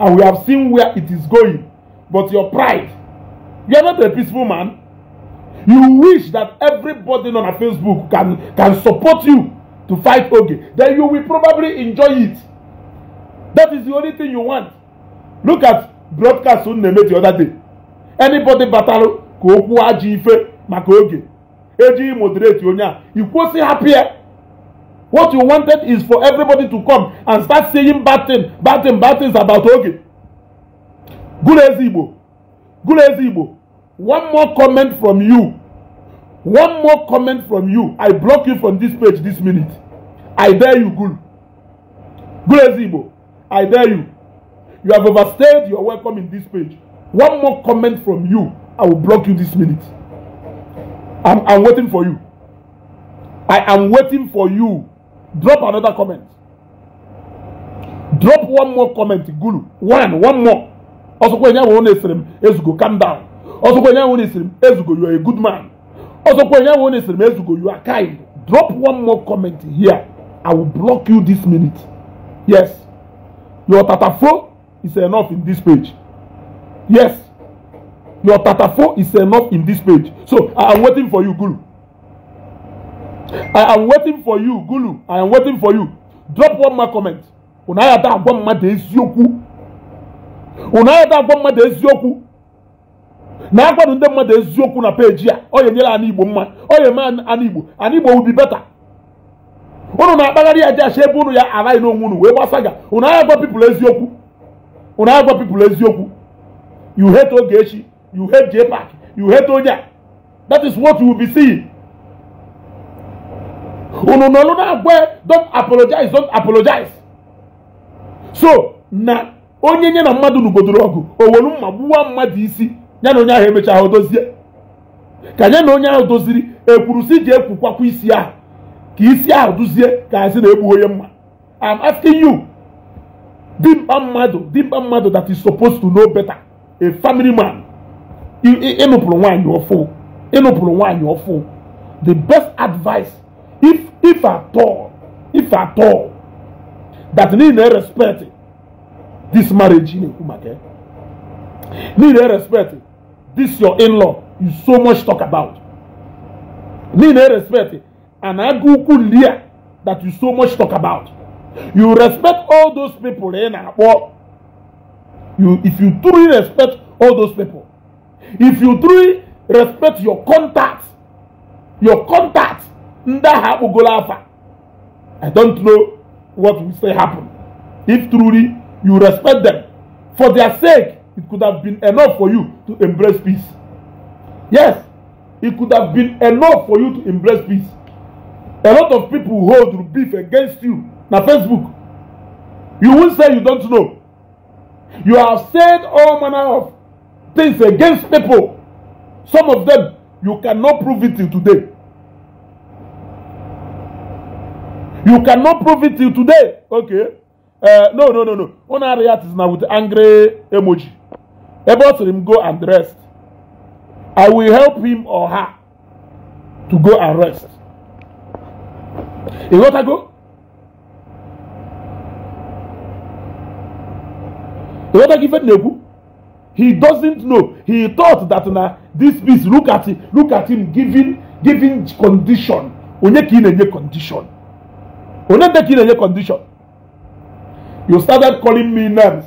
And we have seen where it is going. But your pride, you are not a peaceful man. You wish that everybody on our Facebook can, can support you to fight Oge. Then you will probably enjoy it. That is the only thing you want. Look at broadcast Unneme the other day. Anybody battle ka okwu ajọ ife maka oge ejighị moderate onye a ikwụsị what you wanted is for everybody to come and start saying bad things, bad things, bad things about oge gụrụ eze igbo gụrụ eze igbo One more comment from you. One more comment from you. I block you from this page this minute. I dare you, Gul. Gulezimo. I dare you. You have overstayed your welcome in this page. One more comment from you. I will block you this minute. I'm, I'm waiting for you. I am waiting for you. Drop another comment. Drop one more comment, Gulu. One, one more. Also, when you want to calm down ọsọkwa onye ahụ na-esiri m ezugo you are a good man ọsọkwa onye ahụ na-esiri m ezugo you are kind drop one more comment here i will block you this minute yes your tatafo is enough in this page yes your tatafo is enough in this page so i am waiting for you guru i am waiting for you guru i am waiting for you drop one more comment unu ayada agwa mmadụ eziokwu unu ayada agwa mmadụ eziokwu na akwado ndị mmadụ eziokwu na peji a ọ nyere ana igbo mma ọ ya eme ana igbo ana igbo ubi beta unu na-akpagharị ya jeacha ebe unu ya araghị n'onwe unu wee gbasa ga unu agha gwa pipụl eziokwu unu agha gwa pipụl eziokwu you hate Ogechi you hate park you hate onye that is what you will be seeing unu nọlụ na-agwa don apologize don apologize so na onye nye na mmadụ nugodoro ọgụ owelu mma gbuwa mmadụ isi ya na onye ahụ emechaa ahụ dozie ka ya na onye ahụ doziri ekwuru si ji ekwukwakwa isi ahụ ka isi ahụ duzie ka asị na egbughị onye mma I'm asking you dimkpa mmadụ dimkpa mmadụ that is supposed to know better a family man ịnụpụrụ nwaanyị ọfụ ịnụpụrụ nwaanyị ọfụ the best advice if if at all if at all that niile respect this marriage na-ekwu maka niile respect this your in-law you so much talk about. Need respect and aguku lia that you so much talk about. You respect all those people in eh, Abo. You if you truly respect all those people, if you truly respect your contacts, your contacts, Ndaha Ugolafa. I don't know what will say happen. If truly you respect them for their sake, it could have been enough for you to embrace peace yes it could have been enough for you to embrace peace a lot of people hold beef against you na facebook you won say you don't know you have said all manner of things against people some of them you cannot prove it till today you cannot prove it till today okay uh, no no no no una react is na with angry emoji Abel said him, Go and rest. I will help him or her to go and rest. You got to go? You got to give it Nebu? He doesn't know. He thought that now this piece, look at him. look at him giving giving condition. Onye ki in condition. Onye ki condition. You started calling me names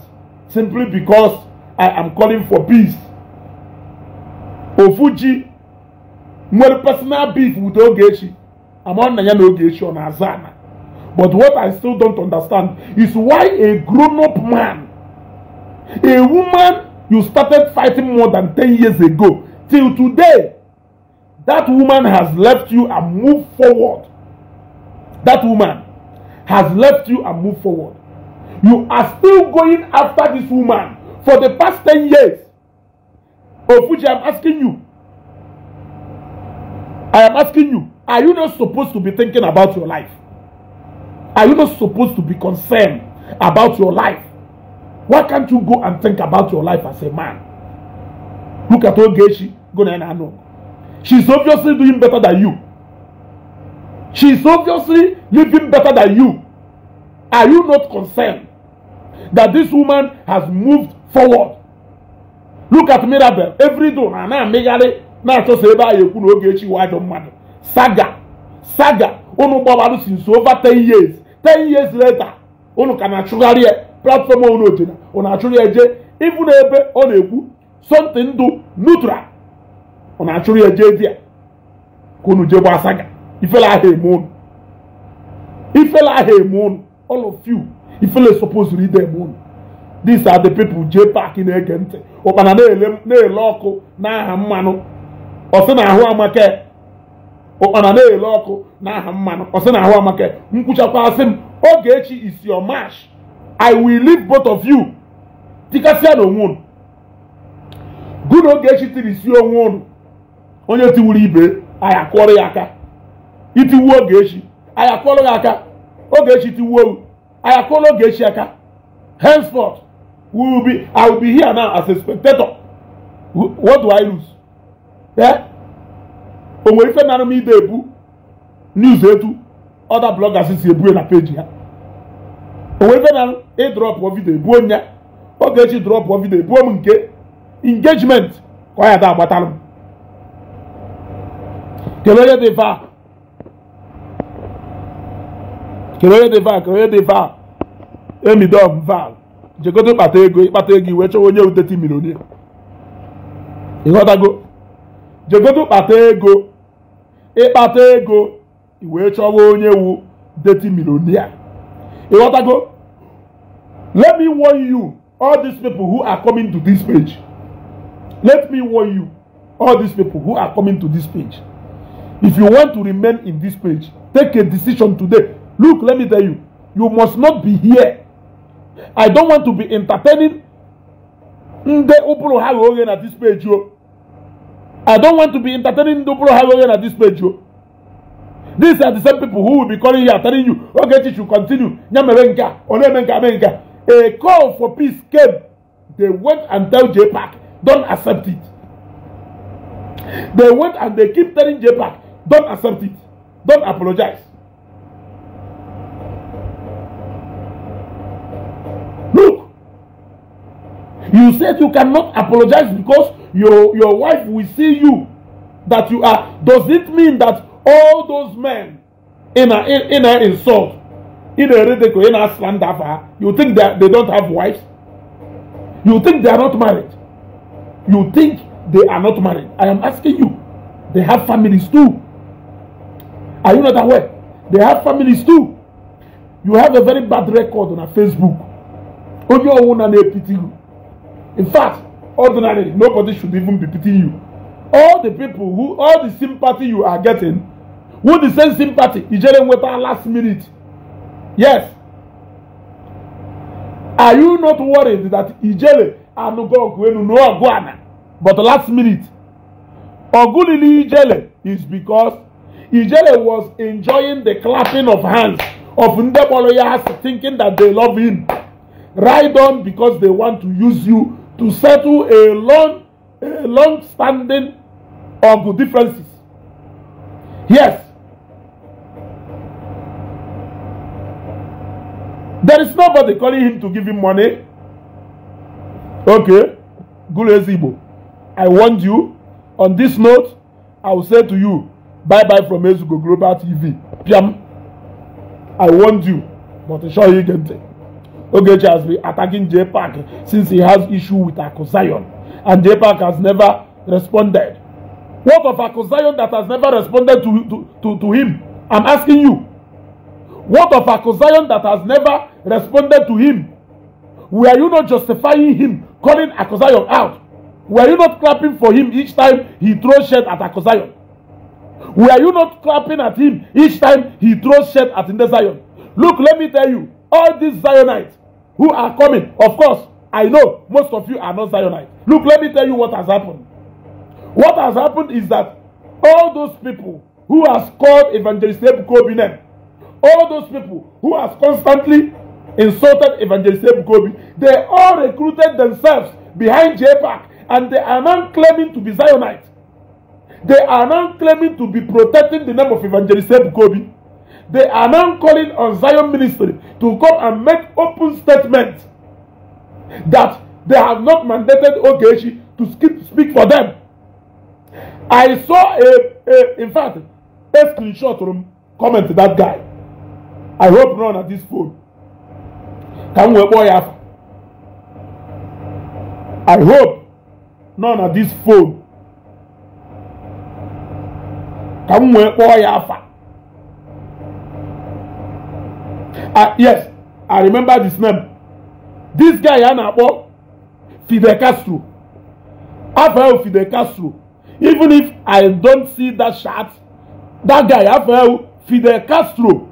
simply because I am calling for peace. Ofuji nwere personal beef with Ogechi among Nanya na Ogechi ọ na But what I still don't understand is why a grown-up man, a woman you started fighting more than 10 years ago, till today, that woman has left you and moved forward. That woman has left you and moved forward. You are still going after this woman for the past ten years, of which I am asking you, I am asking you, are you not supposed to be thinking about your life? Are you not supposed to be concerned about your life? Why can't you go and think about your life as a man? Look at Ogechi Gonenano. She's obviously doing better than you. She's obviously living better than you. Are you not concerned that this woman has moved forward look at Mirabel every day na na-amịgharị na-achọsa ebe ahụ ekwu na oge echi wa ajọ mmadụ saga saga unu gbabarụ since over 10 years 10 years later unu ka na-achụgharị ya platform unu jena unu achụrụ ya jee ịbụ na ebe ọ na-ekwu something do neutral unu achụrụ ya jee di ya ka unu jee saga ifele ahụ eme unu ifele ahụ eme unu all of you ifele to read them unu these are the people jee paaki na-ege ntị ụkpana na-ele ọkụ n'aha mmanụ ọsị na ahụ amake ụkpana na-ele ọkụ n'aha mmanụ ọsị na ahụ amake nkwuchakwasị m oge echi is your march i will leave both of you tikasịa na onwe unu gụ na oge echi tiri isi onwe unu onye tiwuru ibe anyị akụọrọ ya aka itiwu oge echi anyị akụọrọ ya aka oge echi tiwuo anyị akụọrọ oge echi aka henceforth We will be, I will be here now as a spectator. What do I lose? Eh? O nwere ife nara m ide ebu news etu other bloggers si ebue na page ya. O nwere ife nara ịdrọpụ vidio ebuo m ya. Ọ ga-eji drọpụ vidio ebuo m nke engagement ka ọ ya da agbatalụ m. Kedu onye dị vaa? Kedu onye dị vaa? Kedu onye dị vaa? Emidom vaa. jegodo ịkpata ego ịkpata ego iwe chọwa onye uteti milionia ịghọtago jegodo kpata ego ịkpata ego iwe chọwa onye wu deti milionia ịghọtago let me warn you all these people who are coming to this page let me warn you all these people who are coming to this page if you want to remain in this page take a decision today look let me tell you you must not be here I don't want to be entertaining ndị ụbụrụ ha ghe oghe na this page o oh. I don't want to be entertaining ndị ụbụrụ ha ghe oghe na this page o oh. these are the same people who will be calling you telling you "Okay, Ogechi should continue ya mere nke a ọ eme nke ame nke a a call for peace came they went and tell JPAC don't accept it they went and they keep telling JPAC don't accept it don't apologize You said you cannot apologize because your, your wife will see you that you are. Does it mean that all those men in an in, in a insult, in a ridicule, in a slander, you think that they don't have wives? You think they are not married? You think they are not married? I am asking you. They have families too. Are you not aware? They have families too. You have a very bad record on a Facebook. Onye ọnwụ na na-epiti you. In fact, ordinarily, nobody should even be pitying you. All the people who, all the sympathy you are getting, who the same sympathy, Ijele Nweta last minute. Yes. Are you not worried that Ijele Anugogwenu no Agwana, but last minute? Ogulili Ijele is because Ijele was enjoying the clapping of hands of Ndeboloyas thinking that they love him. Ride on because they want to use you to settle a long, a long standing of differences. Yes. There is nobody calling him to give him money. Okay, Gulezibo, I warned you. On this note, I will say to you, bye bye from Ezugo Global TV. Piam, I warned you, but sure you can take. Ogechi has been attacking J Park since he has issue with Akosayon, and J Park has never responded. What of Akosayon that has never responded to, to, to, to him? I'm asking you. What of Akosayon that has never responded to him? Were you not justifying him, calling Akosayon out? Were you not clapping for him each time he throws shit at Akosayon? Were you not clapping at him each time he throws shit at Indesayon? Look, let me tell you, all these Zionites who are coming. Of course, I know most of you are not Zionites. Look, let me tell you what has happened. What has happened is that all those people who has called Evangelist Ebukobi name, all those people who has constantly insulted Evangelist Ebukobi, they all recruited themselves behind JPAC and they are now claiming to be Zionites. They are now claiming to be protecting the name of Evangelist Ebukobi. They are now calling on Zion Ministry to come and make open statement that they have not mandated Ogechi to skip, speak for them. I saw a, a in fact, a screenshot from comment to that guy. I hope none at this phone. Can we boy have? I hope none at this phone. Can we boy have? Ah yes, I remember this name. This guy a na-akpọ Fidel Castro. Afọ Fidel Castro. Even if I don't see that shirt, that guy afọ Fidel Castro.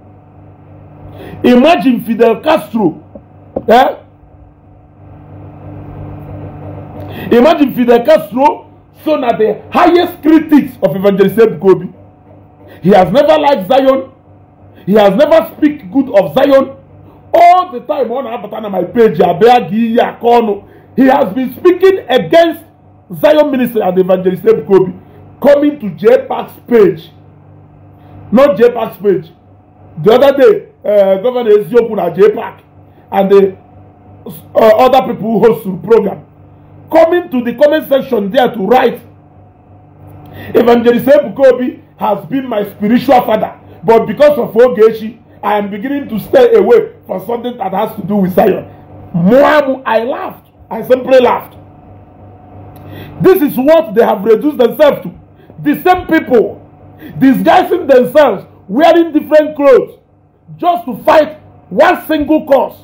Imagine Fidel Castro. Eh? Imagine Fidel Castro, so na the highest critics of Evangelist Ebuka Obi. He has never liked Zion. He has never speak good of Zion. All the time one on Abatana my page, he has been speaking against Zion minister and evangelist Kobe coming to J page. Not J page. The other day, uh, Governor Ezioku at J Park and the uh, other people who host the program coming to the comment section there to write Evangelist Kobe has been my spiritual father But because of Ogechi, I am beginning to stay away from something that has to do with Zion. Muamu, I laughed. I simply laughed. This is what they have reduced themselves to. The same people disguising themselves, wearing different clothes, just to fight one single cause.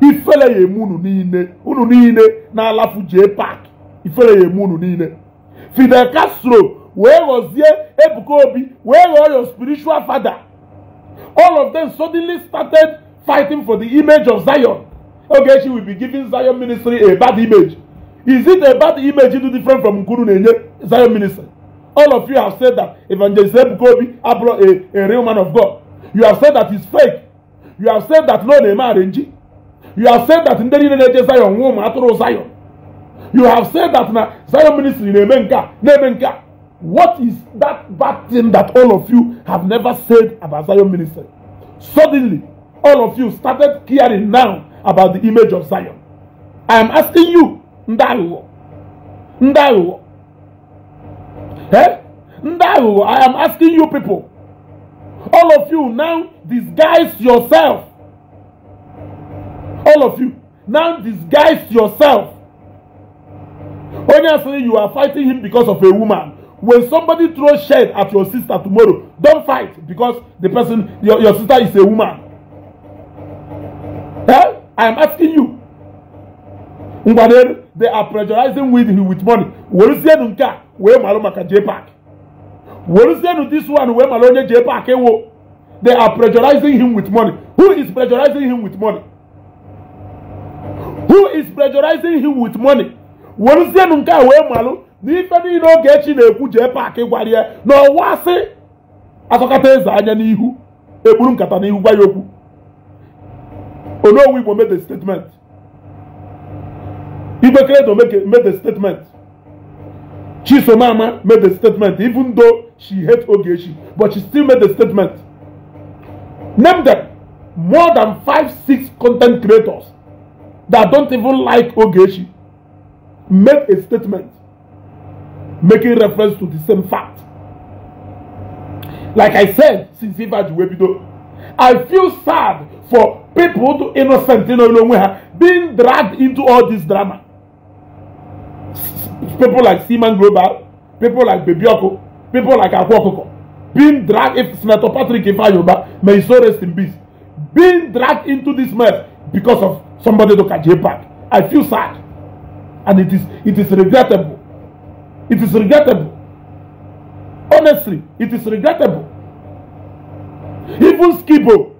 Ifele ya emu unu niile, unu niile na-alafu jee park. Ifele ya emu niile. Fidel Castro wee ghọzie ebuka obi wee ghọọ your spiritual father all of them suddenly started fighting for the image of zion ogechi will be giving zion ministry a bad image is it a bad image do different from nkuru na-enye zion ministry all of you have said that evangelist ebuka obi abụrụ a a real man of god you have said that is fake you have said that no na-eme arenji you have said that ndị niile na-eje zion nwụọ ma atụrụ zion you have said that na zion ministry na-eme nke a na-eme nke a What is that bad thing that all of you have never said about Zion ministry? Suddenly, all of you started caring now about the image of Zion. I am asking you, Ndaiwo, Ndaiwo, eh? Ndaiwo, I am asking you people, all of you now disguise yourself. All of you now disguise yourself. saying you are fighting him because of a woman. when somebody throw shade at your sister tomorrow don fight because the person your your sister is a woman eh i am asking you ngwade they are pressurizing with him with money weresienu nke a wee malụ maka jpac weresienu this one wee malụ onye jpac ewo they are pressurizing him with money who is pressurizing him with money who is pressurizing him with money weresienu nke a wee malụ n'ife niile Ogechi na-ekwu jee paakị gwara ya na ọwa asị asọkata eze anya n'ihu ekpuru nkata n'ihu gwa ya okwu onowu Igbo made the statement Ibekeledo made the statement Chisomama made the statement even though she hate Ogechi but she still made the statement name them more than five six content creators that don't even like Ogechi made a statement making reference to the same fact. Like I said, since Ivaji Webido, I feel sad for people to innocent you know, being dragged into all this drama. People like Seaman Global, people like Bebioko, people like Akwokoko, being dragged, if Senator Patrick Ifayoba, may so rest in peace, being dragged into this mess because of somebody to catch a back. I feel sad. And it is, it is regrettable. It is regrettable. Honestly, it is regrettable. Even Skibo.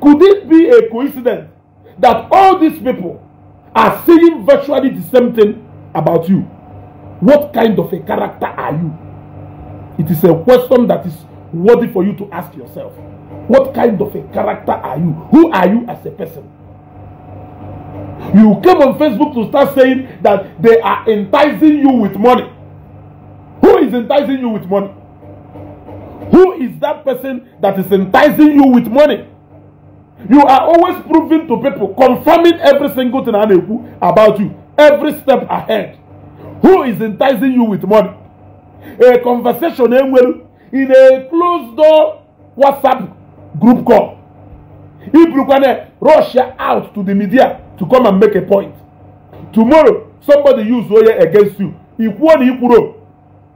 Could it be a coincidence that all these people are saying virtually the same thing about you? What kind of a character are you? It is a question that is worthy for you to ask yourself. What kind of a character are you? Who are you as a person? You came on Facebook to start saying that they are enticing you with money. Who is enticing you with money? Who is that person that is enticing you with money? You are always proving to people, confirming every single thing about you, every step ahead. Who is enticing you with money? A conversation eh, in a closed door WhatsApp group call. If you can eh, rush out to the media to come and make a point tomorrow somebody use oye against you ikwuo na ikwuro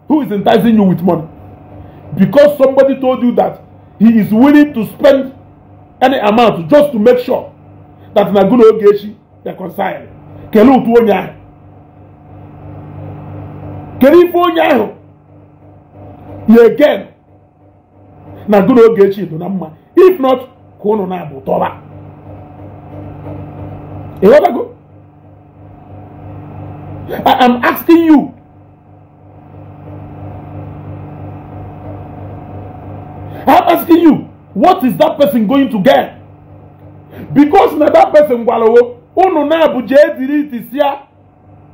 who is enticing you with money because somebody told you that he is willing to spend any amount just to make sure that na gụna oge echi reconcile kelee otu onye ahu kelee again na gụna oge echi mma if not ka ụnụ na-abụ tọba I am asking you I'm asking you what is that person going to get because na that person gwarawo unu na-abụ jee diriti ya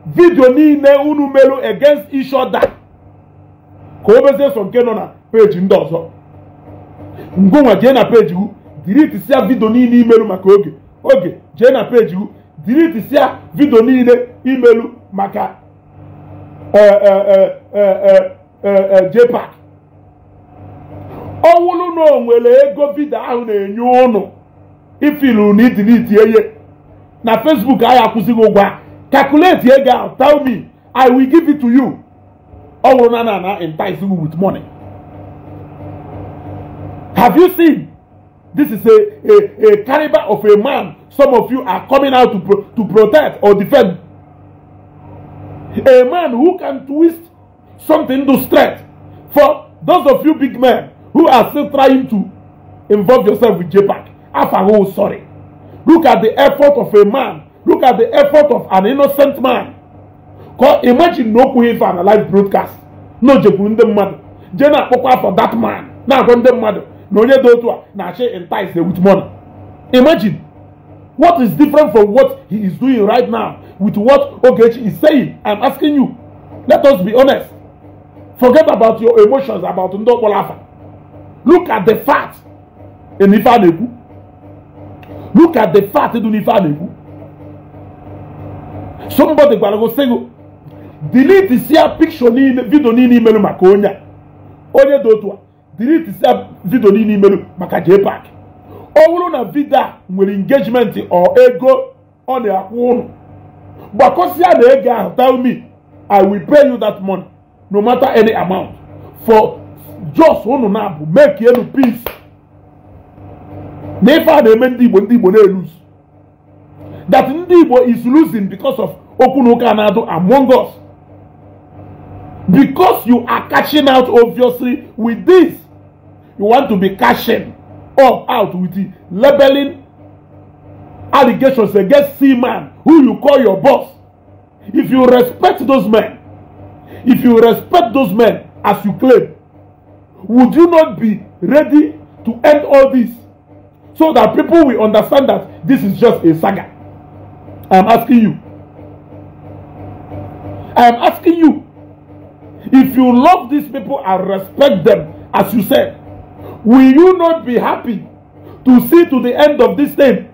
vidio niile unu meru against each other ka o bezie so nke nọ na page ndị ọzọ ngụnwa jee na peji hu diriti ya vidio niile imeru maka oge oge jee na page hu dilitisia vidio niile imelu maka e, e, e, JPAC ọwụlụ na onwere ego vidio ahụ na-enye ụnụ ifilu na idiliti ihe na Facebook ahụ akwụsịghị ụgwọ calculate ego ahụ tell me I will give it to you ọwụrụ na na na entice with money have you seen this is a a a caliber of a man some of you are coming out to pro to protect or defend a man who can twist something to strength for those of you big men who are still trying to involve yourself with jpac afago oh, sorry look at the effort of a man look at the effort of an innocent man cause imagine no okwu ife an alive broadcast no o jekwuru ndị Jena jee na-akpọkwa for that man na-agwa ndị mmadụ na onye dị otu a na-achị entice with money imagine what is different from what he is doing right now with what ogechi is saying i'm asking you let us be honest forget about your emotions about ndị ọkpọrọ look at the fact in ife a na-ekwu look at the fact dị n'ife a na-ekwu somebody gwara gị sị gị delete sia picture niile vidio niile imere maka onye a onye dị otu a delete sia vidio niile imelu maka JPAC ọ bụrụ na vidio nwere engagement ọ ego ọ na-akwụ ụnụ gbakọsịa na ego ahụ tell me I will pay you that money no matter any amount for just ụnụ na-abụ make elu peace na ife a na-eme ndị Igbo ndị Igbo na eluzi that ndị Igbo is losing because of okwu na ụka na-adụ among us because you are catching out obviously with this you want to be cashing up out with the labeling allegations against C-Man, who you call your boss. If you respect those men, if you respect those men as you claim, would you not be ready to end all this so that people will understand that this is just a saga? I am asking you. I am asking you. If you love these people and respect them, as you said, will you not be happy to see to the end of this thing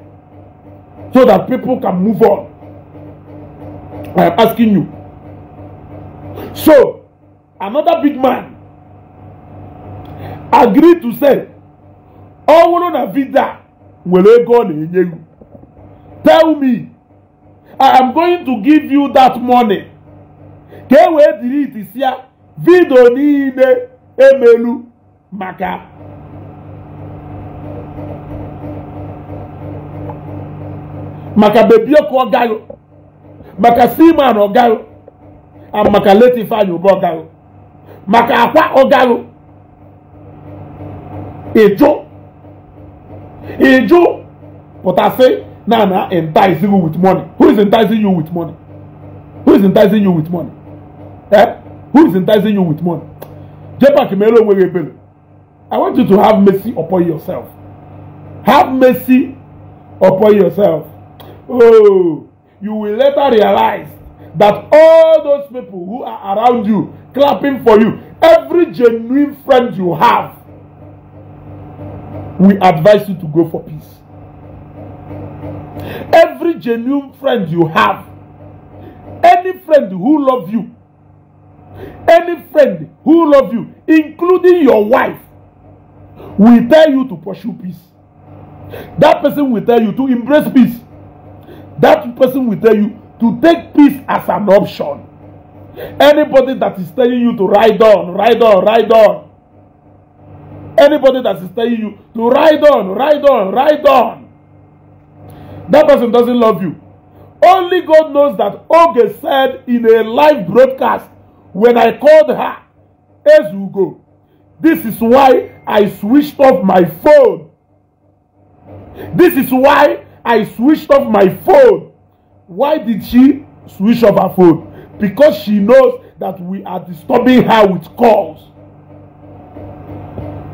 so that people can move on? I am asking you. So, another big man agreed to say, ọ bụrụ na vida nwere ego ọ na-enye you tell me I am going to give you that money ka e wee dịrị itisi vidio niile emelu maka maka beebi ọkụ ọ gaghị maka seaman ọ gaghị maka late Ifeanyi Uba ọ gaghị maka akwa ọ gaghị ịjụ ịjụ pụtasị na na enticing you with money who is enticing you with money who is enticing you with money eh who is enticing you with money jepak meere onwe gị ebere I want you to have mercy upon yourself have mercy upon yourself Oh, you will later realize that all those people who are around you clapping for you, every genuine friend you have, we advise you to go for peace. Every genuine friend you have, any friend who love you, any friend who love you, including your wife, will tell you to pursue peace. That person will tell you to embrace peace. That person will tell you to take peace as an option. Anybody that is telling you to ride on, ride on, ride on. Anybody that is telling you to ride on, ride on, ride on. That person doesn't love you. Only God knows that Oge said in a live broadcast when I called her, as you go. This is why I switched off my phone. This is why I switched off my phone. Why did she switch off her phone? Because she knows that we are disturbing her with calls.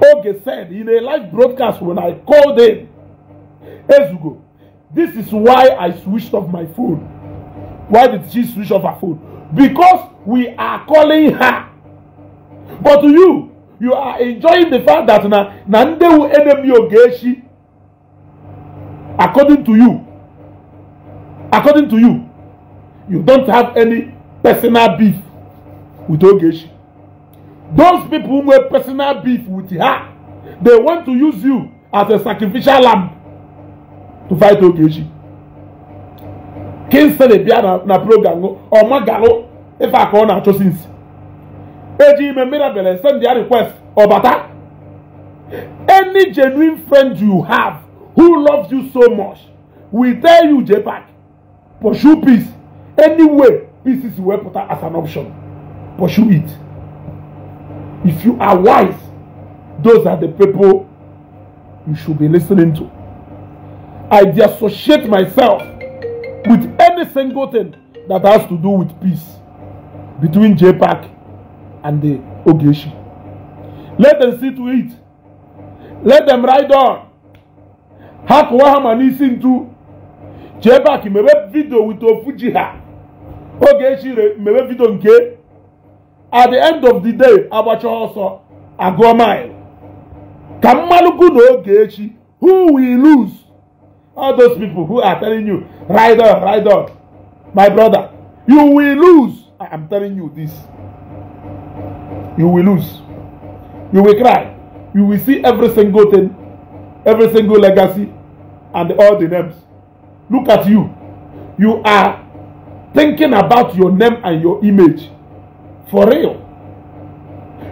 Oge said in a live broadcast when I called him, Ezugo, this is why I switched off my phone. Why did she switch off her phone? Because we are calling her. But you, you are enjoying the fact that na na ndị enemy oge according to you according to you you don't have any personal beef with ogechi those people wey personal beef with her they want to use you as a sacrificial lamb to fight ogechi kinsley bịa na na program ọmagalụ ife aka ọ na-achọsi nsi eji ime mmiri send their request ọbata any genuine friend you have who loves you so much will tell you JPAC, pursue peace. Anyway, peace is well put as an option. Pursue it. If you are wise, those are the people you should be listening to. I dissociate myself with any single thing that has to do with peace between JPAC and the Ogeshi. Let them see to it. Let them ride on ha kụwa ha ma n'isi ntu chee baki mebe video with ofu ha oge echire mebe vidio nke at the end of the day agbacha ọsọ agụọ mile ka mmalụgwu na oge echi who will lose all those people who are telling you ride on ride on my brother you will lose i am telling you this you will lose you will cry you will see every single thing every single legacy and all the names look at you you are thinking about your name and your image for real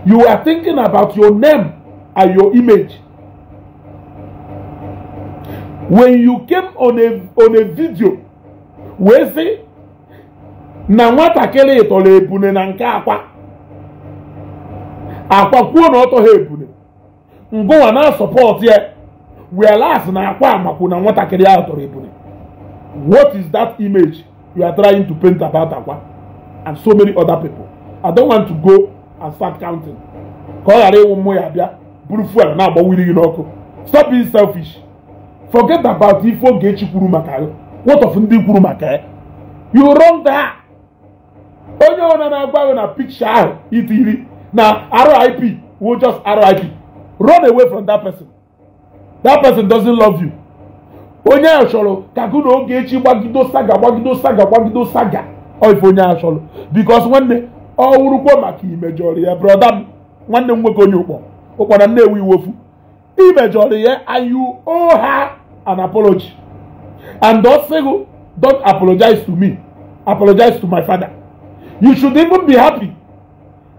you are thinking about your name and your image when you came on a on a video wee sị na nwatakịrị tọrọ ebune na nke akwa akwa kwuo na ọ tọghị ebune ngụwa na-asọpọtụ ya whereas na akwa amakwu na nwatakịrị ahụ tọrọ ebule what is that image you are trying to paint about akwa and so many other people i don't want to go and start counting ka ọ ghara ịwụ mmụ ya bịa buru fuel na-agbawiri gị n'ọkụ stop being selfish forget about ife Ogechi e kwuru maka ya what of ndị kwuru maka ya you run that onye ọbụla na-agwa na picture ahụ itiri na RIP wo just RIP run away from that person that person doesn't love you onye ahụ chọrọ ka gụ na oge echi gbagido saga gbagido saga gbagido saga ife onye ahụ because nwanne ọ wụrụkwa maka imejọrọ ya brọda m nwanne m nwoke onye ụkpọ ụkpọra nnewu iwofu imejọrọ ya and you owe her an apology and don say go don apologize to me apologize to my father you should even be happy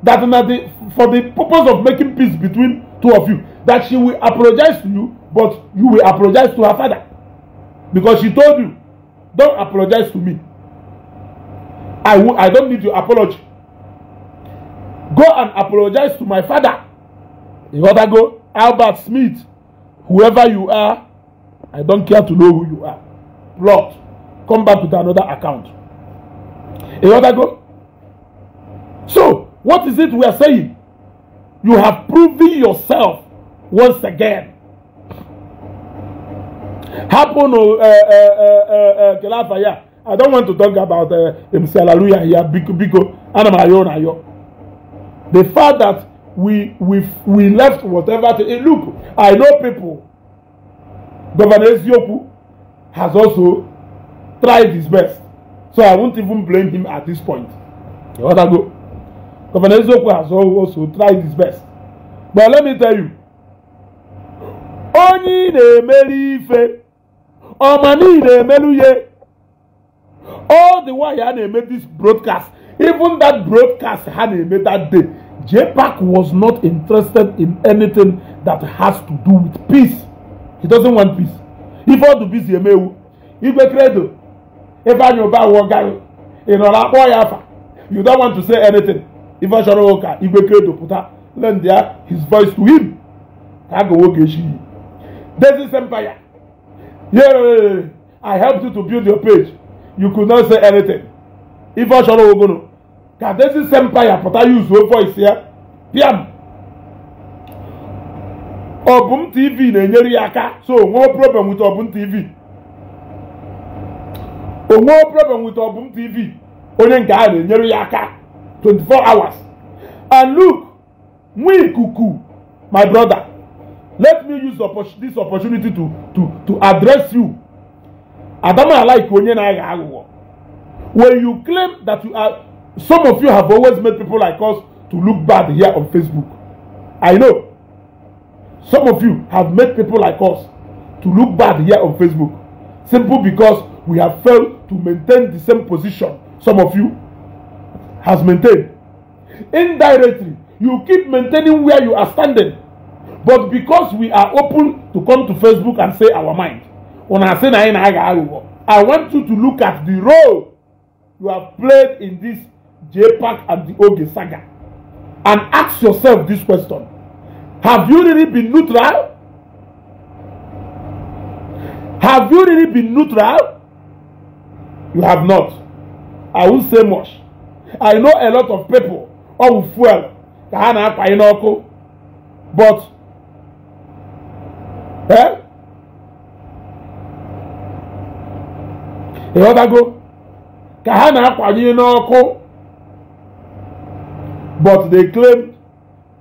that na the for the purpose of making peace between two of you that she will apologize to you but you will apologize to her father because she told you don't apologize to me i will i don't need your apology go and apologize to my father you rather go albert smith whoever you are i don't care to know who you are lord come back with another account you rather go so what is it we are saying you have proven yourself once again. Happen, uh, oh, uh, eh, uh, eh, uh, eh, uh, Kelafaya. I don't want to talk about uh, MC Hallelujah here, Biko Biko, oh, Anamayo Nayo. The fact that we we we left whatever. To, hey, look, I know people. Governor Ezioku has also tried his best, so I won't even blame him at this point. You want go? Governor Ezioku has also tried his best, but let me tell you, onye ị na-emeri ife ọma niile emelu ihe all the wire ha na-eme this broadcast even that broadcast ha na-eme that day JPAC was not interested in anything that has to do with peace he doesn't want peace ife ọdụ bizi emewu igwe credo ebe anyị ụba wụọ gari ị nọrọ akpọ ya afa you don't want to say anything ife ọ chọrọ ụka igwe credo pụta lend his voice to him ka a ga nwoke echi Daisy's empire. Yeah, I helped you to build your page. You could not say anything. If I shall Ife Osoro Ogono. Ka Daisy's empire But I use your voice here. Piam. Obum TV na-enyere ya aka so no problem with Obum TV. Onwe problem with Obum TV. Onye nke a na-enyere ya aka 24 hours. And look, nwa ikuku, my brother let me use this opportunity to to to address you adama like onye na-agha aghụghọ when you claim that you are some of you have always made people like us to look bad here on facebook i know some of you have made people like us to look bad here on facebook simple because we have failed to maintain the same position some of you has maintained indirectly you keep maintaining where you are standing but because we are open to come to facebook and say our mind say na i want you to look at the role you have played in this jpac and the oge saga and ask yourself this question have you really been neutral have you really been neutral you have not i won't say much i know a lot of people all fuel ka but ẹ́ ịghọtago ka ha na-akwanye n'ọkụ but they claim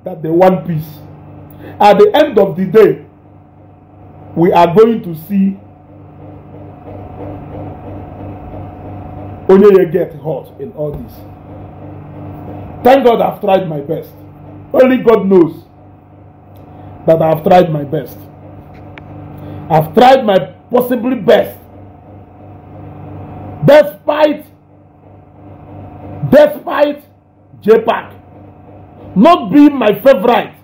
that they want peace at the end of the day we are going to see Onyeye get hurt in all this thank God I've tried my best only God knows that I've tried my best I've tried my possibly best. Despite despite JPAC not being my favorite.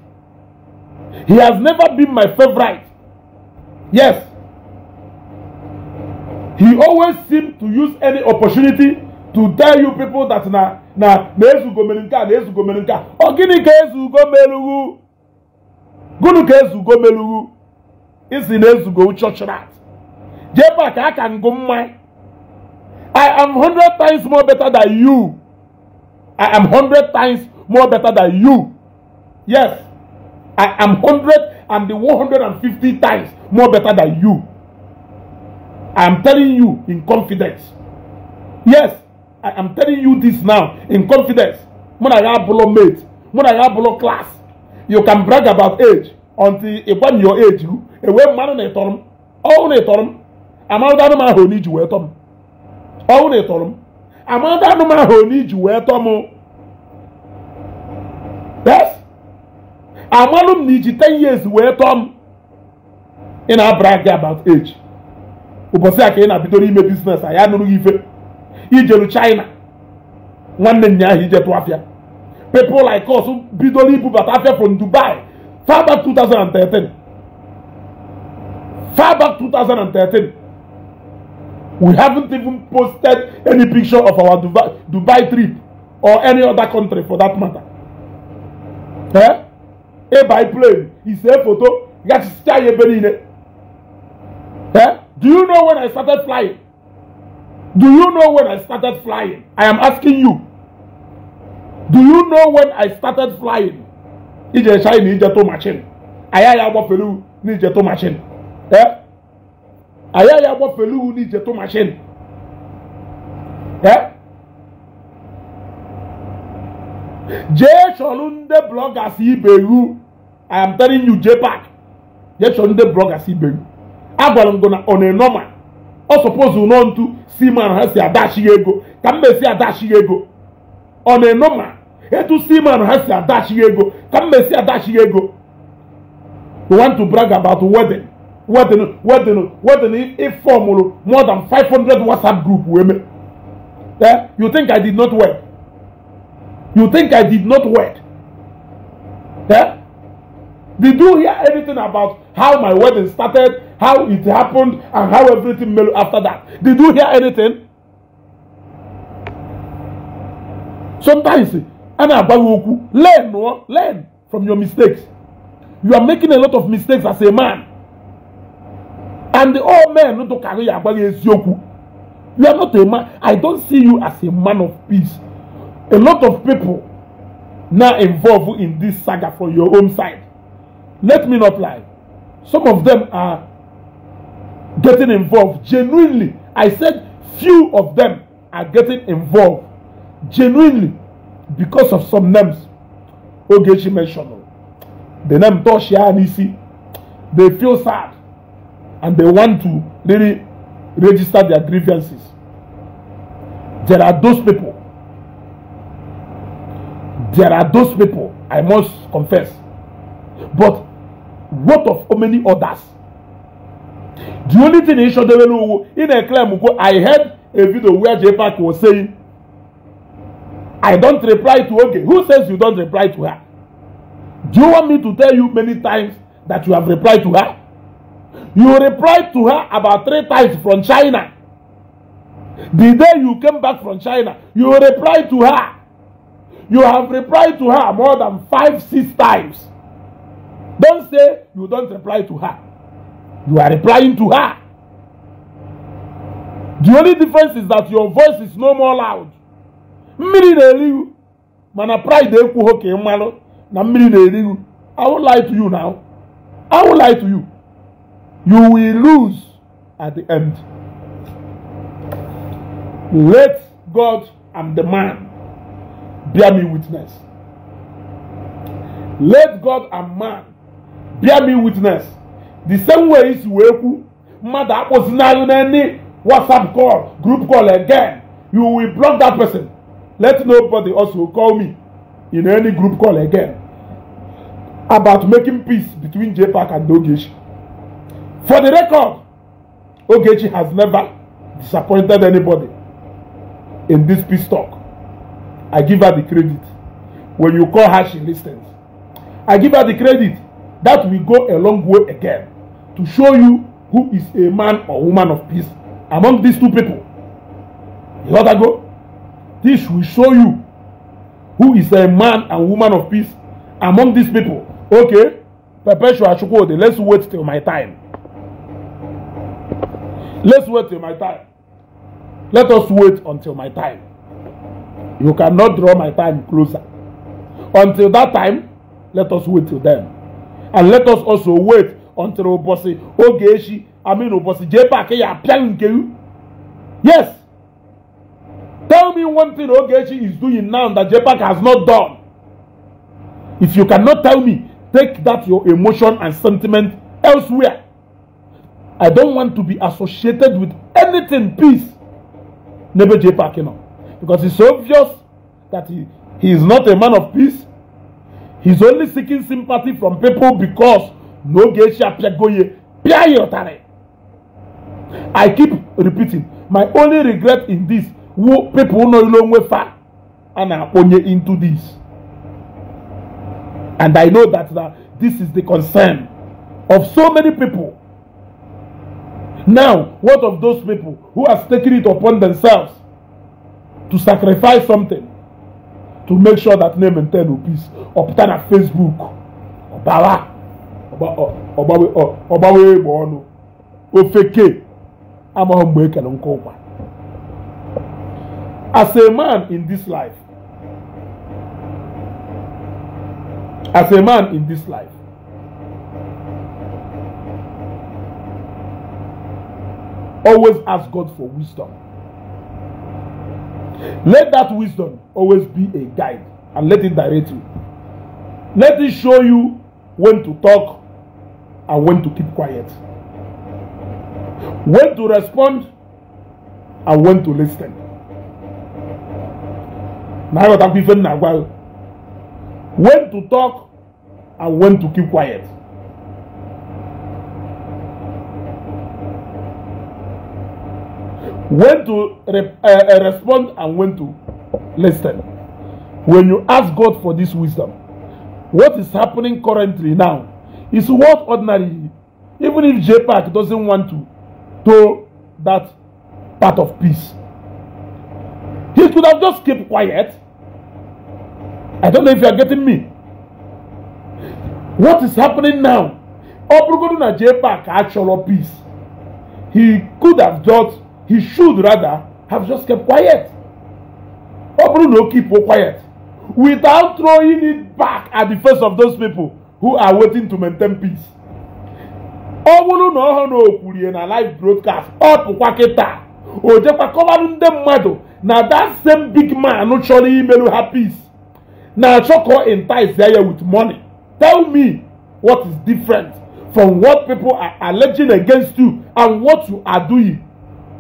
He has never been my favorite. Yes. He always seemed to use any opportunity to tell you people that na na na ezugo mere nke a na ezugo mere nke a ọ gịnị ka ezugo melugwu gịnị ka isi na-ezugo church rat jee pak a ka ngụ mma i am hundred times more better than you i am hundred times more better than you yes i am hundred and the one hundred and fifty times more better than you. I am telling you in confidence. Yes, I am telling you this now in confidence. When I have below mate, when I have below class, you can brag about age until when your age you. enwee mmanụ na ịtọrọ m ọwụ na ịtọrọ m amarụta anụ m ahụ onye iji wee tọ m ọwụ na ịtọrọ m amarụta anụ m ahụ onye iji wee tọ m yes amalụ m na iji 10 years wee tọọ m ị na-abara gị about age ụbọchị a ka ị na-abidoro ime biznes a ya nụrụ gị ife ijeru China nwanne nnya ahụ ije tụ afịa people like bidoro ibubata afịa from Dubai far back 2013 far back 2013. We haven't even posted any picture of our Dubai, Dubai trip or any other country for that matter. Eh? A eh, biplane is a photo. Eh? Do you know when I started flying? Do you know when I started flying? I am asking you. Do you know when I started flying? Ije shine ije to machine. Aya ya gbafelu ni ije to machine. agaghị eh? agbafele iwu n'ije tụ mashin je chọrọ eh? nde blọgas iberu I am telling you JPAC je chọrọ nde blọgas iberu agwara m gụ na ọ na-enọma ọ suppose nọ ntụ si ha si adachi ego ka m mesi adachi ego ọ na-enọma etu si ha si adachi ego ka m mesi adachi ego you want to brag about wedding wedding wedding wedding ifeomulu more than five hundred whatsapp group weme eh you think i did not work you think i did not work eh did you hear anything about how my wedding started how it happened and how everything melo after that did you hear anything sometimes ana agbaghị okwu learn no learn from your mistakes you are making a lot of mistakes as a man And the old men no to carry agbára eziokwu. You are not a man. I don't see you as a man of peace. A lot of people now involved in this saga from your own side. Let me not lie. Some of them are getting involved genuinely. I said few of them are getting involved genuinely because of some names Ogechi mentioned. The name Toshia Anisi. They feel sad and they want to really register their grievances. There are those people. There are those people, I must confess. But what of how many others? The only thing in Shodewelu, in a claim, I heard a video where JPAC was saying, I don't reply to okay. Who says you don't reply to her? Do you want me to tell you many times that you have replied to her? You replied to her about three times from China. The day you came back from China, you replied to her. You have replied to her more than five, six times. Don't say you don't reply to her. You are replying to her. The only difference is that your voice is no more loud. Mmiri na-eri you mana pride ekwughị ka ị mmanụ na mmiri na-eri you. I will lie to you now. I will lie to you. You will lose at the end. Let God and the man bear me witness. Let God and man bear me witness. The same way is isi mother was mmadụ in any WhatsApp call group call again you will block that person. Let nobody also call me in any group call again about making peace between JPAC and Dogeshi. For the record, Ogechi has never disappointed anybody in this peace talk. I give her the credit. When you call her, she listens. I give her the credit. That will go a long way again to show you who is a man or woman of peace among these two people. You know that go? This will show you who is a man and woman of peace among these people. Okay? Perpetual Chukwode, let's wait till my time. Let's wait till my time. Let us wait until my time. You cannot draw my time closer. Until that time, let us wait till then. And let us also wait until Obosi Ogeshi, I mean Obosi Jepake Yapiankeyu. Yes. Tell me one thing Ogeshi is doing now that Jepak has not done. If you cannot tell me, take that your emotion and sentiment elsewhere. I don't want to be associated with anything peace. Nebe J. Parkino. Because it's obvious that he, he is not a man of peace. He's only seeking sympathy from people because no geisha piagoye piayotare. I keep repeating. My only regret in this, who people no long way far and are only into this. And I know that, that this is the concern of so many people Now, what of those people who have taken it upon themselves to sacrifice something to make sure that name and ten rupees obtain at Facebook? Obawa, Obawe Egboonu, Ofeke, Amahombe n'koba. As a man in this life, as a man in this life, Always ask God for wisdom. Let that wisdom always be a guide and let it direct you. Let it show you when to talk and when to keep quiet. When to respond and when to listen. When to talk and when to keep quiet. when to re uh, respond and when to listen. When you ask God for this wisdom, what is happening currently now is what ordinary, even if JPAC doesn't want to, to that part of peace. He could have just kept quiet. I don't know if you are getting me. What is happening now? Obrugodu na JPAC actual peace. He could have just he should rather have just kept quiet ọ bụrụ na o keep quiet without throwing it back at the face of those people who are waiting to maintain peace ọ bụrụ na ọhụrụ na o kwurie na live broadcast ọ pụkwa kịta o jekwa kọbarụ ndị mmadụ na that same big man chọrọ imerụ ha peace na-achọ ka ọ entice ya with money tell me what is different from what people are alleging against you and what you are doing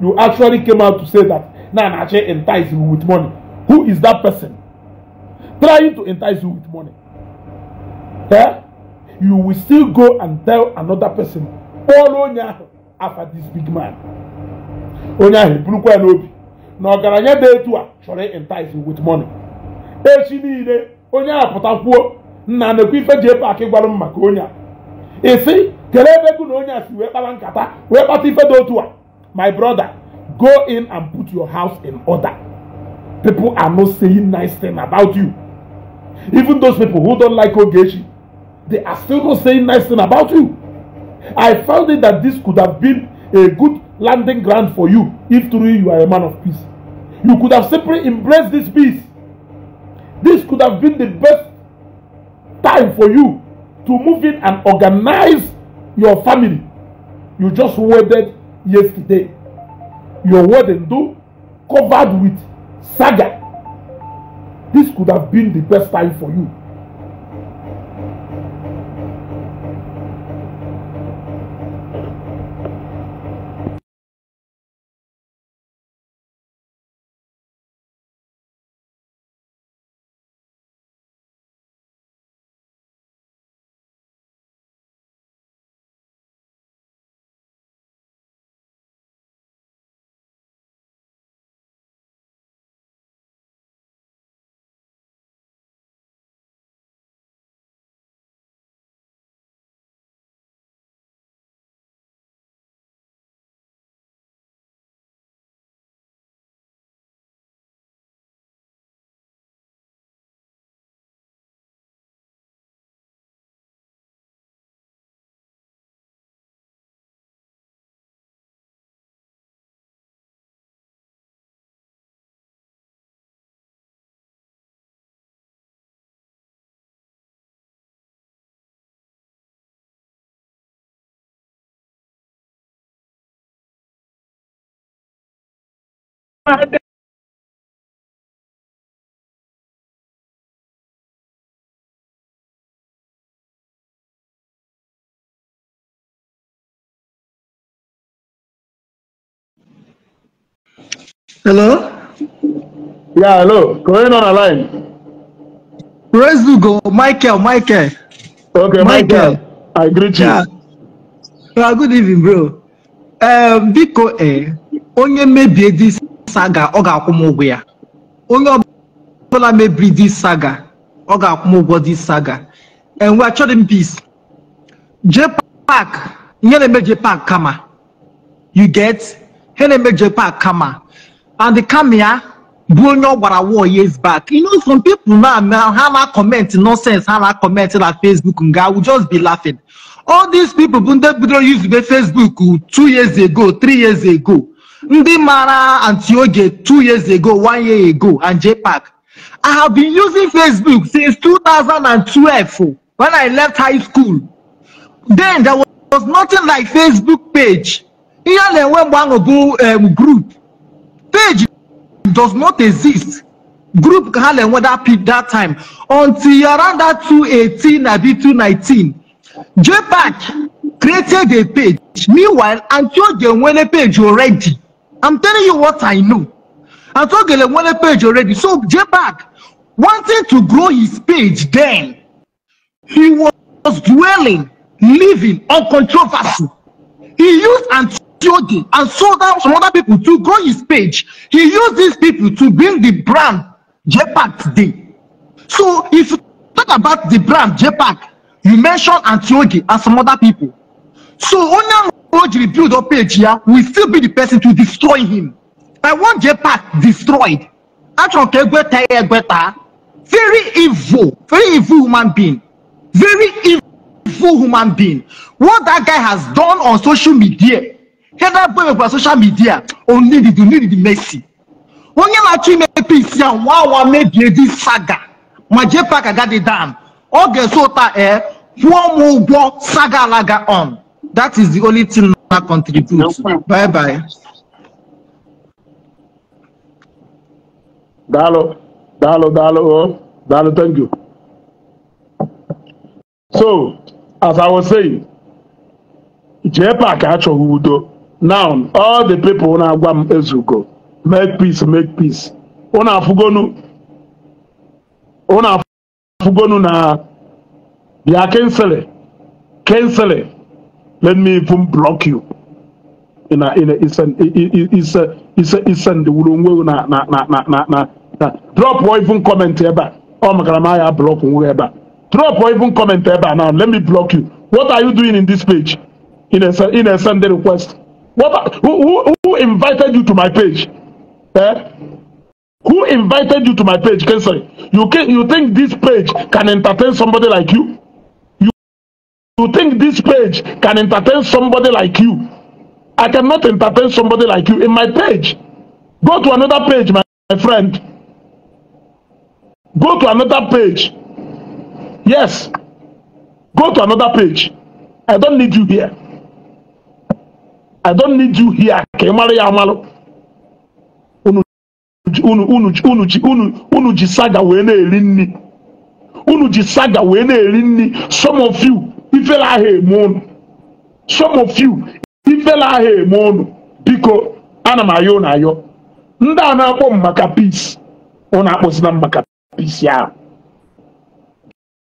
you actually came out to say that Nanache entice you with money. Who is that person trying to entice you with money? Yeah? You will still go and tell another person, follow Nyahu after this big man. Onyahu, Brukwa and Obi. na ọgaranya dị etu a chọrọ entice with money echi niile onye a pụtakwuo nna na-ekwu ife ji epe akị gwara m maka onye a isi ebe na onye a si wee nkata wee kpata ife dị otu a My brother, go in and put your house in order. People are not saying nice things about you. Even those people who don't like Ogechi, they are still not saying nice things about you. I found it that this could have been a good landing ground for you if truly you are a man of peace. You could have simply embraced this peace. This could have been the best time for you to move in and organize your family. You just waited yesterday. Your word and do covered with saga. This could have been the best time for you Hello? Yeah, hello. Going on the line. Praise to Michael, Michael. Okay, Michael. Michael. I greet you. Yeah. Well, good evening, bro. Um, biko eh, onye mebie this saga ọ ga-akwụ m ụgwọ ya onye ọbụla mebiri dis saga ọ ga-akwụ m ụgwọ dis saga enwe achọghị m peace jee pak ihe na-eme jee kama you get ihe na-eme jee pak kama and kama ya bụ onye ọ gwara war years back you know some people now now ha na comment nonsense ha na comment na facebook nga i will just be laughing all these people bụ ndị bidoro yuzube facebook two years ago three years ago ndị mara antioge two years ago one year ago and jpac i have been using facebook since 2012 when i left high school then there was nothing like facebook page ihe a na-enwe mgbe ahụ bụ um, group page does not exist group ka ha na-enwe that peak that time until around that 218 abi 219 jpac created a page meanwhile antioge nwere page already I'm telling you what I know. I told Gelewale page already. So J-Bag, wanting to grow his page then, he was dwelling, living on controversy. He used Antiochi and sold out some other people to grow his page. He used these people to build the brand J-Bag today. So if you talk about the brand J-Bag, you mention Antiochi and some other people. So Onan Road rebuild up page here will still be the person to destroy him. I want JPAC destroyed. Atronke Egbeta Egbeta, very evil, very evil human being, very evil human being. What that guy has done on social media, he heather boy on social media, only the need the mercy. Onye na-achọ ime peace ya nwa awa made this saga My JPAC agadi dam ọ ga-eso ụta ee kwụọ m ụgwọ saga alaga on uh, um. That is the only thing I contribute. No bye bye. Dalo, Dalo, Dalo, oh, Dalo, thank you. So, as I was saying, JPAC achọghị udo. Now, all the people na-agwa m ezugo, make peace, make peace. Unu afụgonu, unu afụgonu na bịa kensịlị, kensịlị. Let me even block you. In a, in a, it's an, it's a, it's a, it's an, na, na, na, na, na, na, na. Drop or even comment ebe. Oh my grandma, I block nwe ebe. Drop or even comment ebe now. Let me block you. What are you doing in this page? In a, in a Sunday request. What, who, who, who invited you to my page? Eh? Who invited you to my page? Can say you can, you think this page can entertain somebody like you? You think this page can entertain somebody like you? I cannot entertain somebody like you in my page. Go to another page, my, my friend. Go to another page. Yes. Go to another page. I don't need you here. I don't need you here. Ka ị mara ya amalụ. Unu ji saga wee na-eri nri. Unu ji saga wee na-eri nri. Some of you ifele ahụ eme unu. some of you ifele ahụ eme unu. biko ana m ayọ na ayọ ndị a na-akpọ m maka peace ụnụ akpọzila m maka peace ahụ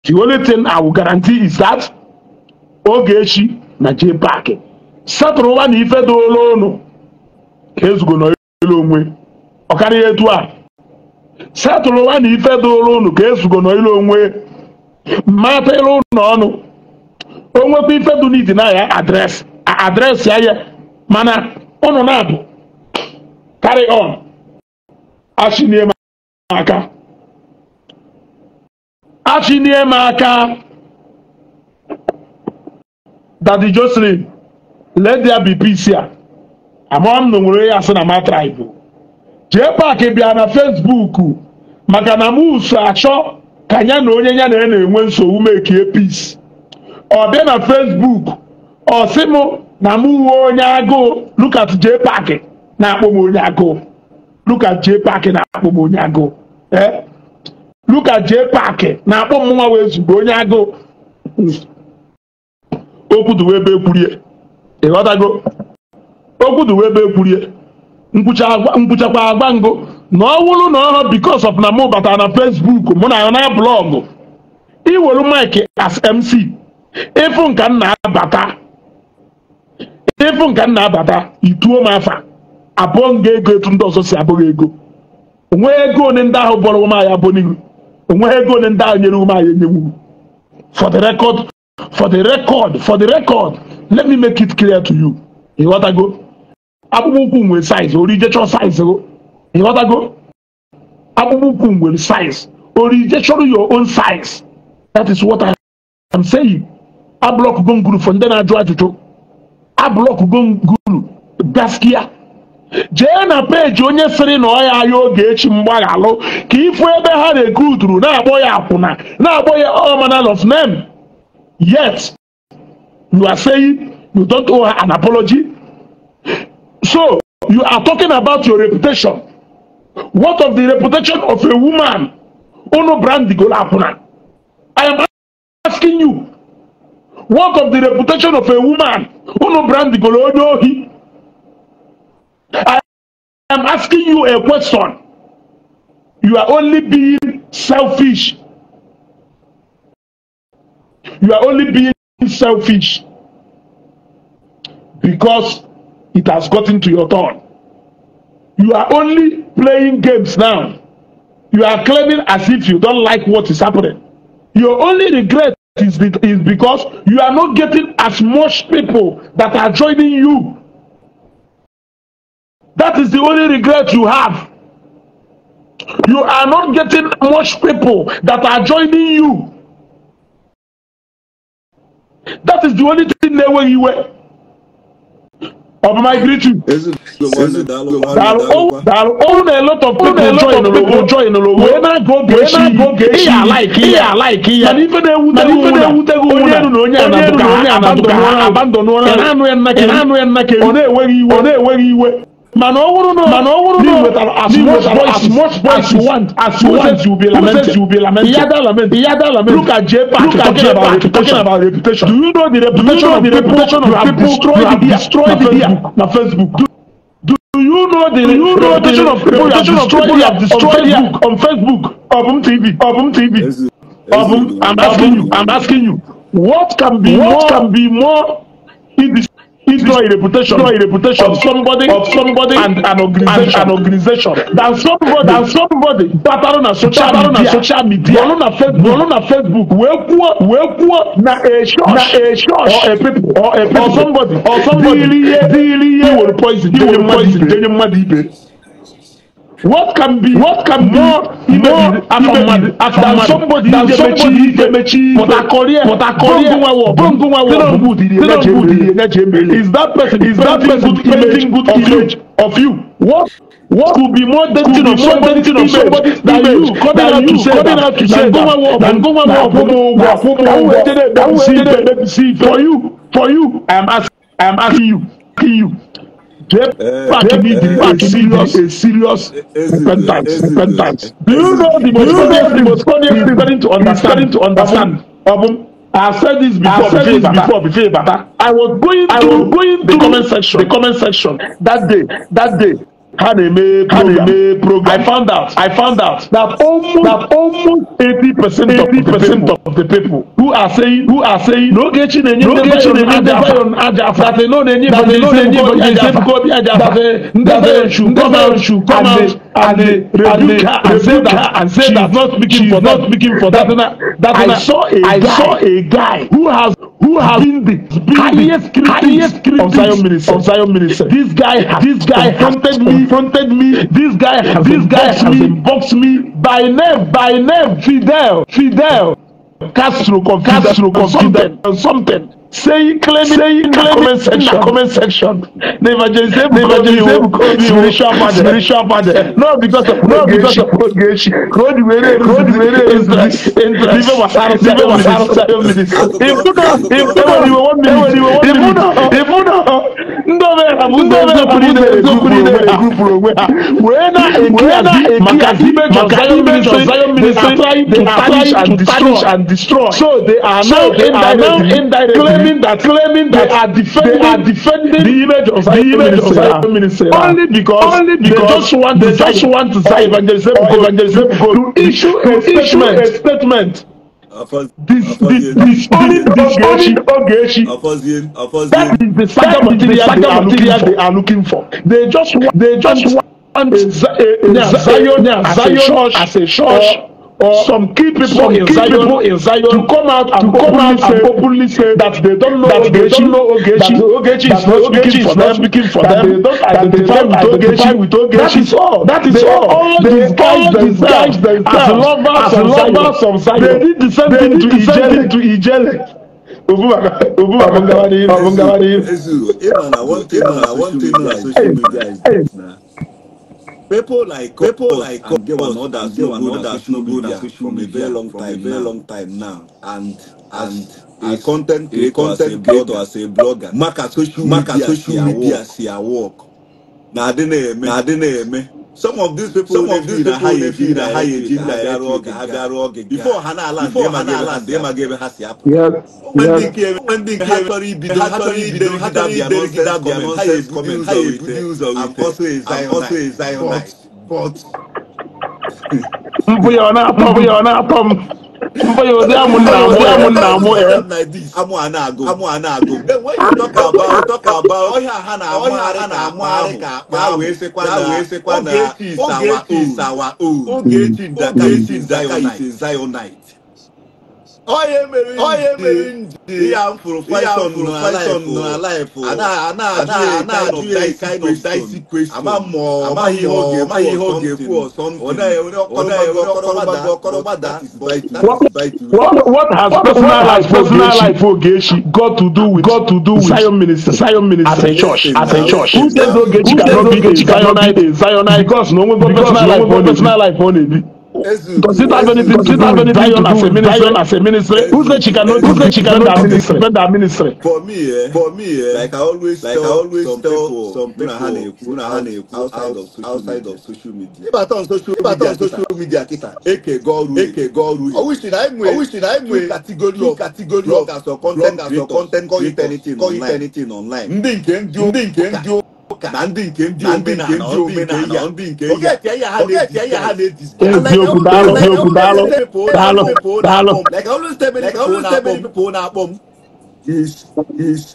the only thing I will guarantee is that Ogechi na Jay Park satụrụ ụwa na ife dola ụnụ ka ezugo n'elu onwe ọkarịa etu a setụrụ ụwa na ife dola ụnụ ka ezugo n'elu onwe mmatịrụ ụnụ ọnụ onwekwa ife dị n'idi na ya adreesị adreesị ya mana ụnụ na-abụ carry on achịnie m aka achịnie m aka dadi Jocelyn let bi be peace ya amụọ na nwere ya asị na ma tribe jee paaki bịa na Facebook maka na m uso achọ ka ya na onye ya na ya na-enwe nsogbu mekie peace ọ bịa na fesbuk ọ sị m na m nwe onye agụụ Lukas J. Park na-akpọ m onye agụụ Lukas J. Park na-akpọ m onye agụụ ee Lukas J. Park na-akpọ m nwa wee zugbo onye agụụ okwuduwe ebe ekwurie ịghọtago okwuduwe ebe ekwurie mkpuchakwa agwa ngụ na ọ wụrụ na ọhụrụ because of na mụ batara na fesbuk mụ na ya na blọọgụ iwere mike as MC ịfụ nka m na-abata ịfụ nka m na-abata ituo m afa abụọ m ga-ego etu ndị ọzọ si abụghị ego onweghị ego one ndị ahụ bọrọ ụmụ anyị abụ n'ihu onweghị ego one ndị ahụ nyere ụmụ anyị enyewu for the record for the record for the record let me make it clear to you ịghọtago akpụkpọ ụkwụ nwere size orijecho size o. ịghọtago akpụkpọ ụkwụ nwere size orijecho your own size that is what I am saying ablọkụgo nguru fọ ndị na-ajụ ajụjụ ablọkụgo ngulu gaskiya jee na page onye sịrị na ọ ya ahịa oge echi mgbaghalụ ka ịfụ ebe ha na rekruturu na-akpọ ya akwụna na-akpọ ya all manner of name yet you are saying you don't owe an apology so you are talking about your reputation what of the reputation of a woman unu brandigol akwụna i am asking you What of the reputation of a woman who no brand the Golodohi? I am asking you a question. You are only being selfish. You are only being selfish because it has gotten to your turn. You are only playing games now. You are claiming as if you don't like what is happening. Your only regret is, is because you are not getting as much people that are joining you. That is the only regret you have. You are not getting much people that are joining you. That is the only thing they were you were ọmọ migratory. dàrú òun náà lot of people join lọ wee na go gechi ihe alaiki ihe alaiki ya na ife na-ewutego onye enu na onye anaduka ha abandonuola ya na anụ ya nna kere ọ na-enweghị iwe ọ na-enweghị iwe Mana owuru no. Mana owuru no. With as, as much voices, as much voice you want, as you want, you will be lamented. Says you be lamented. The other lament. The Look at J Park. Look at J Park. Talking about reputation. Do you know the reputation of the reputation of people destroyed the destroyed the na Facebook. Do you know the reputation of people you have destroyed on Facebook on Facebook, on TV, on TV? I'm asking you. I'm asking you. What can be what can be more destroy a reputation, destroy a reputation of somebody, of somebody, and an organization, and an organization. Than somebody, than somebody, battle on social, battle on social media, battle on Facebook, battle on Facebook. Where poor, where poor, na a church, na a church, or a people, or a people, or somebody, or somebody. Diliye, diliye, will poison, will poison, will poison. What can be what can be more more, more abamadi than somebody than somebody Demechi Portakorie Portakorie Bongunwawo Tinubu Tinubu is that person is that person painting good image of you what what could be more dating of somebody of somebody than you coming out to say coming out to say Bongunwawo Bongunwawo Bongunwawo Bongunwawo for you for you I am asking I am asking you asking you. Back in Egypt, back in serious, a serious repentance, repentance. Do you know the most funniest thing? Most funniest thing starting to understand, to understand. Obum, I have said this before. said this before. Before I was going, I was going to the comment section, the comment section that day, that day ka na-eme program. program. I found out. I found out that almost that almost eighty percent eighty percent of the people who are saying who are saying n'ogechi na-enye ndị bayon aja afa that they no na-enye that they no na-enye nsefukọbi aja afa ndị bayon should come out should come out and they rebuke her and say that and say that not speaking for that speaking for that that I saw a guy who has who has been the highest critics, of Zion ministry. Of Zion ministry. This guy, has this guy confronted me, confronted me. This guy, has this guy has me, boxed me by name, by name, Fidel, Fidel, Castro, Castro, Castro, something, something saying claiming saying claiming section comment section the evangelism the evangelism called you spiritual father spiritual father No, because of not because of progression road were road were interest interest live wasaro live wasaro seven minutes if you can if you can you one minute you one minute if you know ndo be ha ndo be ha ndo be ha ndo be ha group ro we ha we na we na maka dibe maka dibe zion ministry trying to tarnish and destroy so they are now indirectly claiming that claiming that they are defending they are defending the image of the image of Zion minister only because only because they just want they just want Zion evangelism or evangelism to issue a statement. A statement. This this this only Ogechi. That is the saga material, saga material they are looking for. They just want they just want Zion Zion as a church as a church or some key people, some in, key Zion, people in Zion to come out and to come out say, and openly say that they don't know that Ogechi, they don't know Ogechi, that Ogechi is not speaking for them, speaking for that they don't identify with Ogechi, with Ogechi. That is all. That is they all. all. They all disguise themselves as lovers, as lovers of Zion. They did the same thing to Ijele. To Ijele. Obumagawa na Yesu. Ịma na one thing na one thing na social media is this na people like people like and there were others there were others no go there from a very long time very long time now and and a content creator as a blogger as a blogger maka social media si her work na adi na eme na adi na eme some of these people some of these people dey be na high agenda agaru oge agaru oge before ha na ala before ha na ala ndị ma ga-ebe ha si apụ ndị nke ha chọrọ ibido ha chọrọ ibido gida bịa nọnsens gọọment ha ebudi ụzọ wite and also a zionite but mbụ ya ọ na-atọ mbụ ya ọ na-atọ m mba ụdị amụ nna amụ amụ nna amụ ya eh? amụ a na-agụ amụ a na-agụ eh, ọhịa ha na-amụ ara na-amụ ka akpa ahụ efekwa na wee na oge eti oge eti ndaka zayonite onye mere ndị ya mfụrụ python nọ alaịfụ ana-ajụ ya kind of dicey question amaghị ihe ọ ga-ekwu ọsọmpi What has personal life personal Ogechi got to do with got to do with Zion minister Zion minister as a church as a church? Who says Ogechi cannot be a Zionite? Zionite because no one personal life on it. Does it have anything, does it have anything Zion as a ministry? as a ministry? Who said she cannot, who said she cannot defend ministry? For me, eh, for me, eh, like I always like tell, I always some tell people, some people, some people, some people outside, of outside of social media. If I turn social, if I turn social media, kisa, eke goru, eke goru. Oh, I oh, oh, wish that I knew, I wish that I knew category of, category of, content, as a content, call it anything, online. Ndị nke ndị ndị nke ndị ụka na ndị nke ndị omenala ndị nke ya eziokwu daalụ eziokwu daalụ daalụ daalụ na-akpọ m is is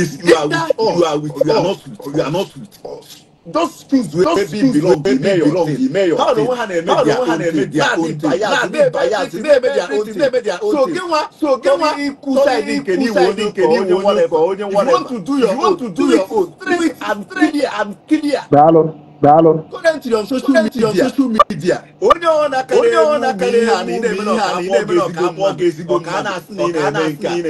is you are with you are not with you are not with us those things wey those things wey be belong the mayor how do one hand make their own thing their own thing na dey bias dey make their own thing so kenwa so kenwa iku side nkeni wo ni nkeni wo ni for onye whatever you want to do your own do it straight and clear and clear. Daalụ. Kọrentị on social media. Onye ọ na-akara elu ihe a na ị na-eme na ọ ga-abụ ezigbo mmadụ ọ na-asị na ị na-eme nke a ị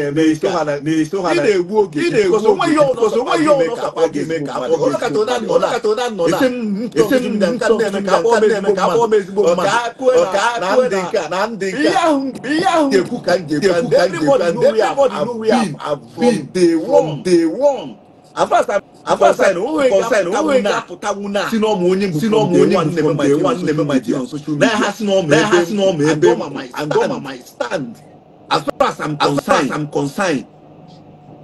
na-egbu oge ị na-egbu oge onweghị ọnụ ọsọkwa ga-eme ka afọ ga-eme ka afọ m ezigbo mmadụ na ndị nke a ihe ahụ ga-ekwu ka m ga-ekwu ka m ga-ekwu and everybody know we have been the one afasa kọsẹn taguna sinọmụ onye bụ from day one nwanne m my dear on social media na ha si n'ọmụ ebe and goma my stand as far as i'm concerned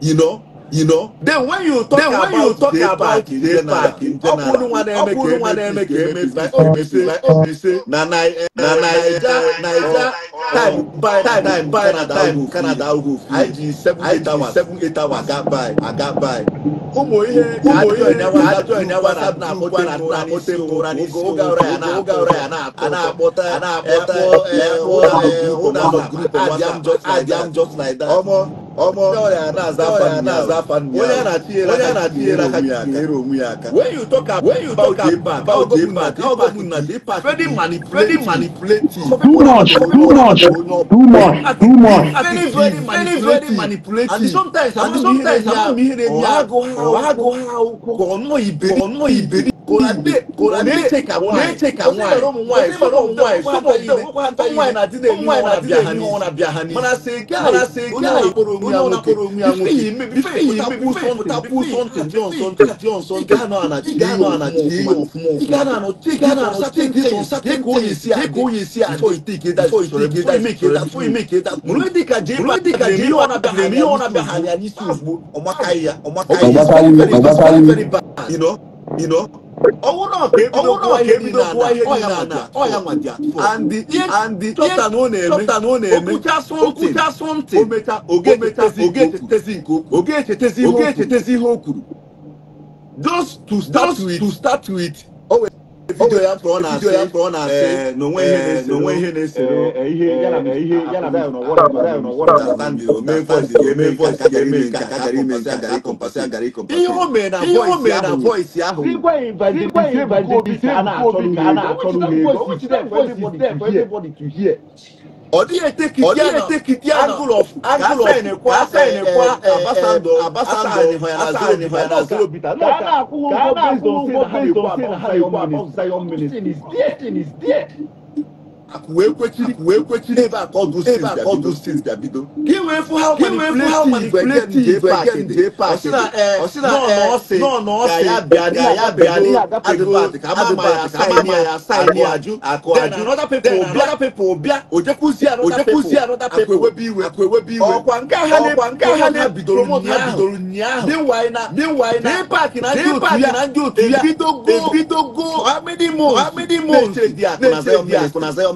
you know You know. Then when you talk then when about you talk day about park, day park, ọkùnrin wa na-eme ka eme ka eme ka eme ka eme say na Naija Naija time by time by time Canada go fit IG seven eight hours aga by aga by. Ụmụ ihe ụmụ ihe ajọ ịnyawa na-akpọte mkpụrụ na-akpọte mkpụrụ n'isi oge ọrịa oge ọrịa na-akpọta na-akpọta ụlọ ahụ grupu na grupu na grupu na grupu like that. When you talk about when you talk about, about government, how government they part very manipulating, manipulating. Too much, too much, too much, too much. Very, very, very, very manipulating. And sometimes, and sometimes, I'm hearing, I'm hearing, I'm going, I'm going, I'm going, I'm going, I'm going kòràdé kòràdé n'echeck àwọn àyè onímọ̀lọ́mù wáyé sọ́mọ̀ yìí nàdínlẹ̀ ní wọn nàbíà hàní mana se gáàyè onímọ̀lọ́mù onye amòkè bífẹ̀ yìí mẹ́bí takú sọ́ntì bí ọ̀nsọ́ntì bí ọ̀nsọ́ntì gánà ànàjì yíyọ òfun òfun gánà ànàjì gánà ànàjì gánà ànàjì kóyè sí àdé kóyè sí àdé tó ìtìkè dá tó ìtìkè dá ìmìkè dá tó ìmìkè dá múlẹ́dìkà jẹ́ múlẹ́dìkà jẹ́ yíyọ nàbíà hàní àní sùn ọmọkàyà ọmọkàyà ọmọkàyà owó náà kébí ló wáyé ní dada ọ̀yà wà jà fún andi and chọpụta and ọ na-eme chọpụta na ọ na-eme okwucha something omecha oge echetezi nke okwu oge echetezi ihe o kwuru just to start with to start with vidio ya mkpọrọ na asị mkpọrọ na asị n'onwe ihe na-esere ihe yana na ihe yana na na ọwọrọ na ọwọrọ na standi ome voice ya ome voice ya eme nke aka gara ime nke agara ịkọmpasị agara ịkọmpasị ihe o mee na voice ahụ voice ahụ igwe evangelist evangelist a na-achọ n'ụlọ ego o jide voice to hear ọdịetekiti angle of Asa-Enekwa ambassador Asa-Enekwa Ghana akwụghị ụgwọ based on saying how high your man is. This thing is there wee kwechiri wee kwechiri ebe a ka ọdụ stins bịa bido stins bịa bido ka ị wee fụ ha manipulative ebe aka ndị paakị dị nọ na ọsị ya bịa na ya bịa na adịpat ka ama ya saịnị ya saịnị ajụ akụ ajụ bịa ojekwuzi anọda pepo akwewebe iwe akwewebe iwe ọkwa nke ha na bidoro nyaahụ dịwaị na paakị na ndị otu ya ebidogo amịdị mons na-echere dị akụ na zayọ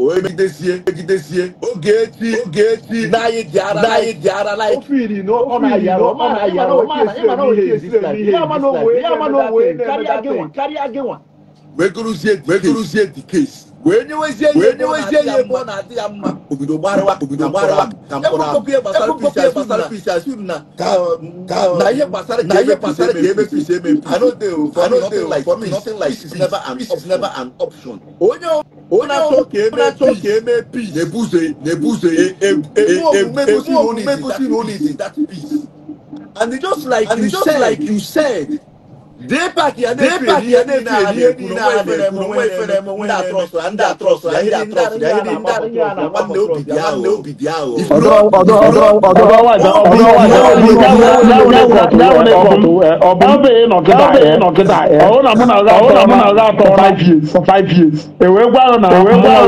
o egidesie egidesie oge echi oge echi n'anyị ji ara n'anyị ji ara like. o firi na ọ na-ayara ọ na-ayara ọ na-ayara ihe ya mana onwe ya mana onwe karịa gị nwa karịa gị nwa. wekuruzie wekuruzie the case wee nyewezie ihe mụ na adị ya mma obodo gbarawa obodo gbarawa ka mkpọrọ gbasara fish as you na na ihe gbasara na ihe gbasara ka ebe fish eme anode ụfọdụ nothing like for me nothing like is never an is never an option onye onye achọ ka eme achọ ka eme peace na-ebuze na-ebuze egosi na onye is that peace and just like you said like you said. dee ya na-efe ihe a na-ekwu onwe efere m onwe na-atrọsụ ndị atrọsụ ya ndị atrọsụ ya ndị ya nwanne obi dị ahụ obi dị ahụ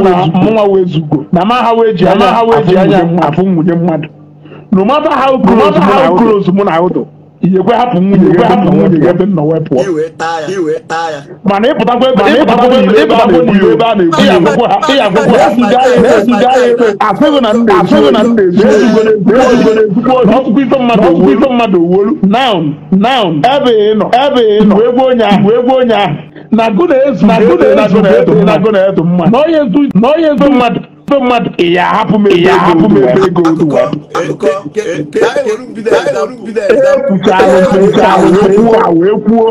na mụnwa wee zugo na ma ha wee ji anya afụ nwunye mmadụ no matter how Ọbụ iyekwe hapụ nwunye gị hapụ nwunye gị ebe nna wee pụọ mana ịpụtakwa ebe a na-egbu ebe a na-egbu ya agwụkwọ ha ya agwụkwọ ha na-ezuga ya ebe asịghị na ndị asịghị na ndị ezugo n'ezugo n'ezugbo ọtụtụ ife mmadụ ọtụtụ ife mmadụ owolu naun naun ebe ị nọ ebe ị nọ wee gbuo onye ahụ wee gbuo onye ahụ na gụ na-ezu na gụ na-ezu na gụ na-ezu mmadụ na onye ezu mmadụ so mad ìyá hapu mi ìyá hapu mi bẹ gold web. ekwucha ahụ ekwuo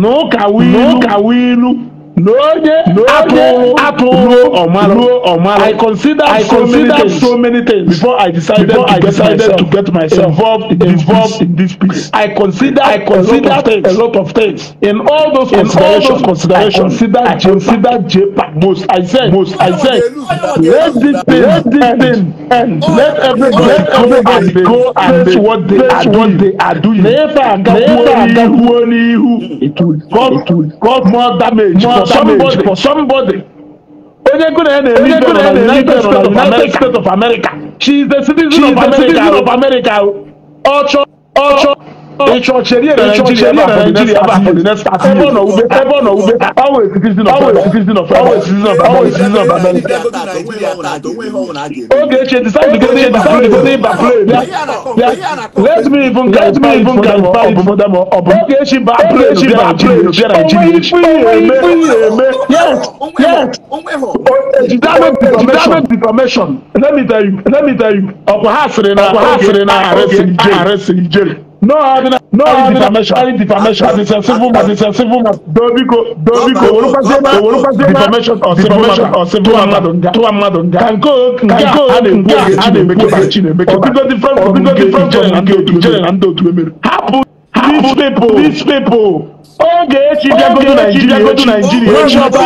n'ụka wilu lóde lóde apuru omaro omaro i consider I so consider many things so many things before i decided before to I get decided myself to get myself involved in involved this in this piece i consider I consider a lot of things a lot of things in all those in all those considerations I consider I consider JPAC most I said most I said let this thing let this thing end let everybody let everybody go and face what they are what they are doing never again never again it will cause cause more damage for somebody for somebody. Onye Gune na-eri ego na United States of America. She is the citizen, of, America. citizen of ọ chọọ. Ìchọ̀chẹ̀rí ẹ̀rọ Nàìjíríà bá for the next thirty years. Ẹbọ̀n náà wúbe ẹbọ̀n náà wúbe always citizen of always citizen of always citizen of always citizen of America. Oge eche decide to go dey back play go dey back play. Let me even let me even clarify it furthermore. Oge eche back play eche back play eche Nàìjíríà eche. Yes yes. Ejidame defamation. Let me tell you let me tell you. Ọkwa ha sịrị na ọkwa ha sịrị na arịsị ijeri. No ordinary, no ordinary defamation it's a civil as a civil matter. dobiko dobiko owolopase defamation or civil matter or civil matter to a mmadụ nga kanko nga a na-ekwu oge Chinemeke bara Chinemeke bara ọbụgo different ọbụgo different ijere na ndị otu emere hapụ people these people oge echi bịagodo naijiria echi ọba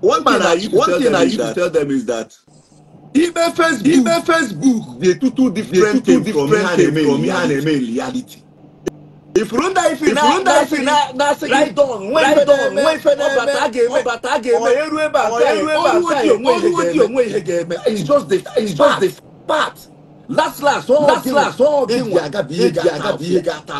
One thing I used to tell them is that even Facebook, even Facebook, they two two different, they two, two different from here and reality if Runda Ife na Runda Ife na na right don right don nwe ife na ọbata aga eme ọbata aga eme ọrụ ebe aka eme ọrụ odi onwe ọrụ odi onwe ihe ga it's just the it's just the part last last all last last all dị nwa eji aga bụ ihe ga-ata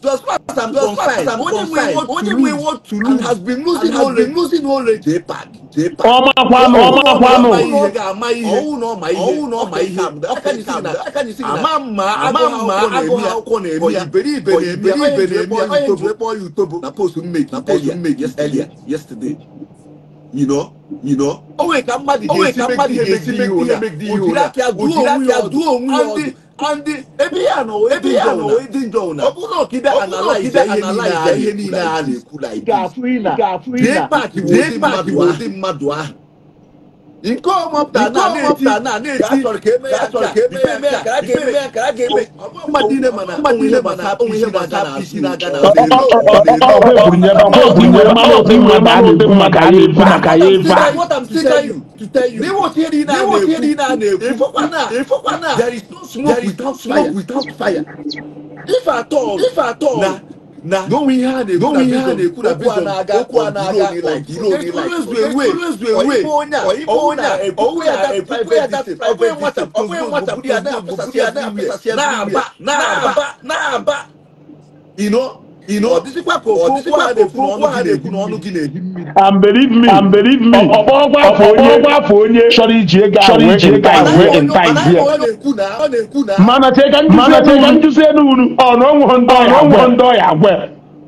plus past and plus past and confine only we want to lose and has been losing has been losing knowledge. dey pack dey pack. ọmọ kwanu ọmọ kwanu ọwụ na ọma ihe ọwụ na ọma ihe aka nisi na ama mma ama mma agụghị akwụkwọ na-eme ya iberibe na-eme ya iberibe na-eme ya utobo ekpọ ya utobo na post mmeki na post mmeki earlier yesterday you know you know onwe ka mmadụ ga-esi make ihe make ihe ụra ojiri aka duo onwe ya ọdụ and the ebi ya na ebi ya na edi njọ una ọ bụrụ ọkide analyze ihe niile a na-ekwu like this ga-afụ ina ga-afụ ina dee paaki wụ ndị mmadụ ahụ iko mọpụta na na-eti ya chọrọ ka eme ya chọrọ ka eme ya eme ya kara ka eme ya kara ka eme mma diile mana mma diile mana onwe ihe gbata na isi na aka na ọ bụ maka ya efu maka ya efu a There is no smoke without fire. If at all, if at all, na don we had a don we had a could have been on okwu anaga like iro ni like always be way always be way oyibo onya owu ya epupu ya ọgbẹ nwata ọgbẹ nwata bi ada apụsasị ada apụsasị ya na aba na aba na aba you know and believe me and believe me ọkpọgwa afọ onye chọrọ iji ego ahụ in time here mana teka nduzi enu unu ọnụọnwụ ndị ọya agwe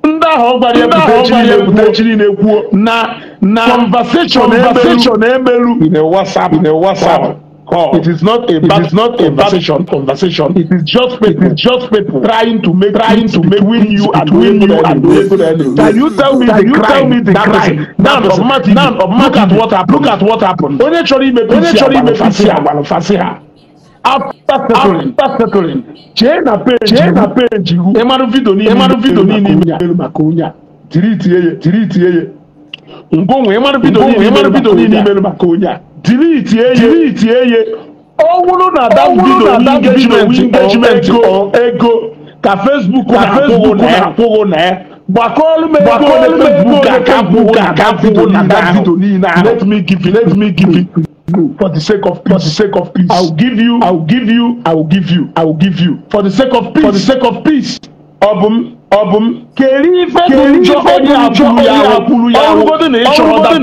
ndị ahụ ọ gwara ya bute chiri na-ekwuo na conversation emelu in a WhatsApp in a WhatsApp call. It is not a it is not a conversation. Conversation. It is just people. It is just people trying to make trying to make win you and win you and win you. Can you tell me Can you tell me the crime. Now of Martin. Now of Look at what happened. Look at what happened. Onye chọrọ ime onye chọrọ ime fasi ha gbalụfasị ha. After settling, after settling, chee na page, chee na page, ịmarụ vidio niile, ịmarụ vidio niile ime ya maka onye a, tiri itie ya, tiri itie ya. Ngwo nwe ịmarụ vidio niile, ịmarụ vidio niile ime tiri iti eye tiri iti eye ọ bụrụ na adam bido engagement engagement ego ka facebook na-akwụghị na ya gbakọọlụ m ego ole facebook akwụghị akwụghị na adam bido niile ahụ let me give you let me give you for the sake of peace. for the sake of peace. I will give you. I will give you. I will give you. I will give you. for the sake of peace. for the sake of peace. ọbụm ọbụm keri ife dị njọ onye abụrụ ya abụrụ ya ọrụ godo na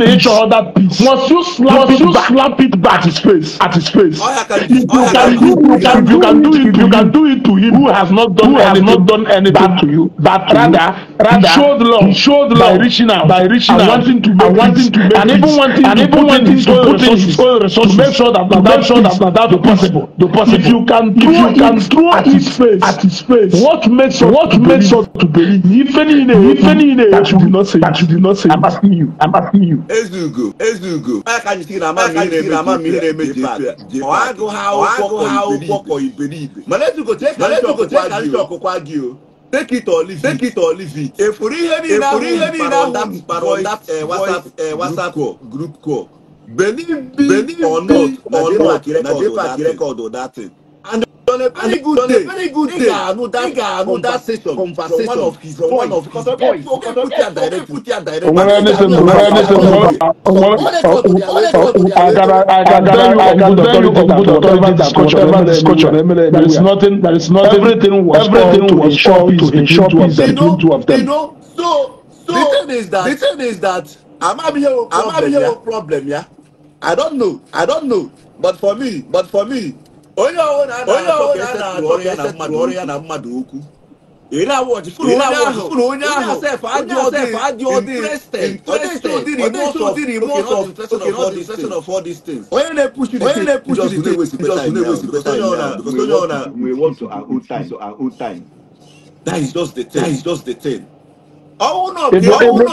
ịchọrọ that peace once you slap it back slap it back at his face at his face if you can do you can you can do it you can do it to him who has not done who has not done anything to you but rather rather he showed love he showed love by reaching out by reaching out and wanting to make wanting to make and even wanting and even wanting to put in his own resources to make sure that na that sure that na that the possible the possible if you can do it at his face at his face what makes what makes us to believe different in different in that you do not say that you do not say I'm asking you I'm asking you As as you you go, go. can Ezugo Ezugo aka nyi na ma mi re na ma mi re meje fa o ago ha o ago ha o gboko iberibe malezugo take malezugo take ari ọkụkọ agị o take it or leave take it or leave it efuru ihe niile ahụ mkpara ọda whatsapp whatsapp group call benin be or not or not na jepa record or that thing on a very good day very good day gaanu that gaanu that session conversation one of his one of his boys okay put it direct put ya direct. ọmọdé ní sọ ọmọdé ní sọ ọmọdé agara agara agara computer authority discussion emele discussion emele there is nothing there is nothing everything was everything was sure to ensure peace between two of them. you know so so the thing is that the thing is that amabiyewo amabiyewo problem ya i don't know i don't know but for me but for me onye ọwụ na na-atọ mmadụ ya na mmadụ okwu ere awọdị fụrụ onye ahụ adị ọdị onye na-epushi the wesipụta onye ọ na we want to our own time that is just the thing even your own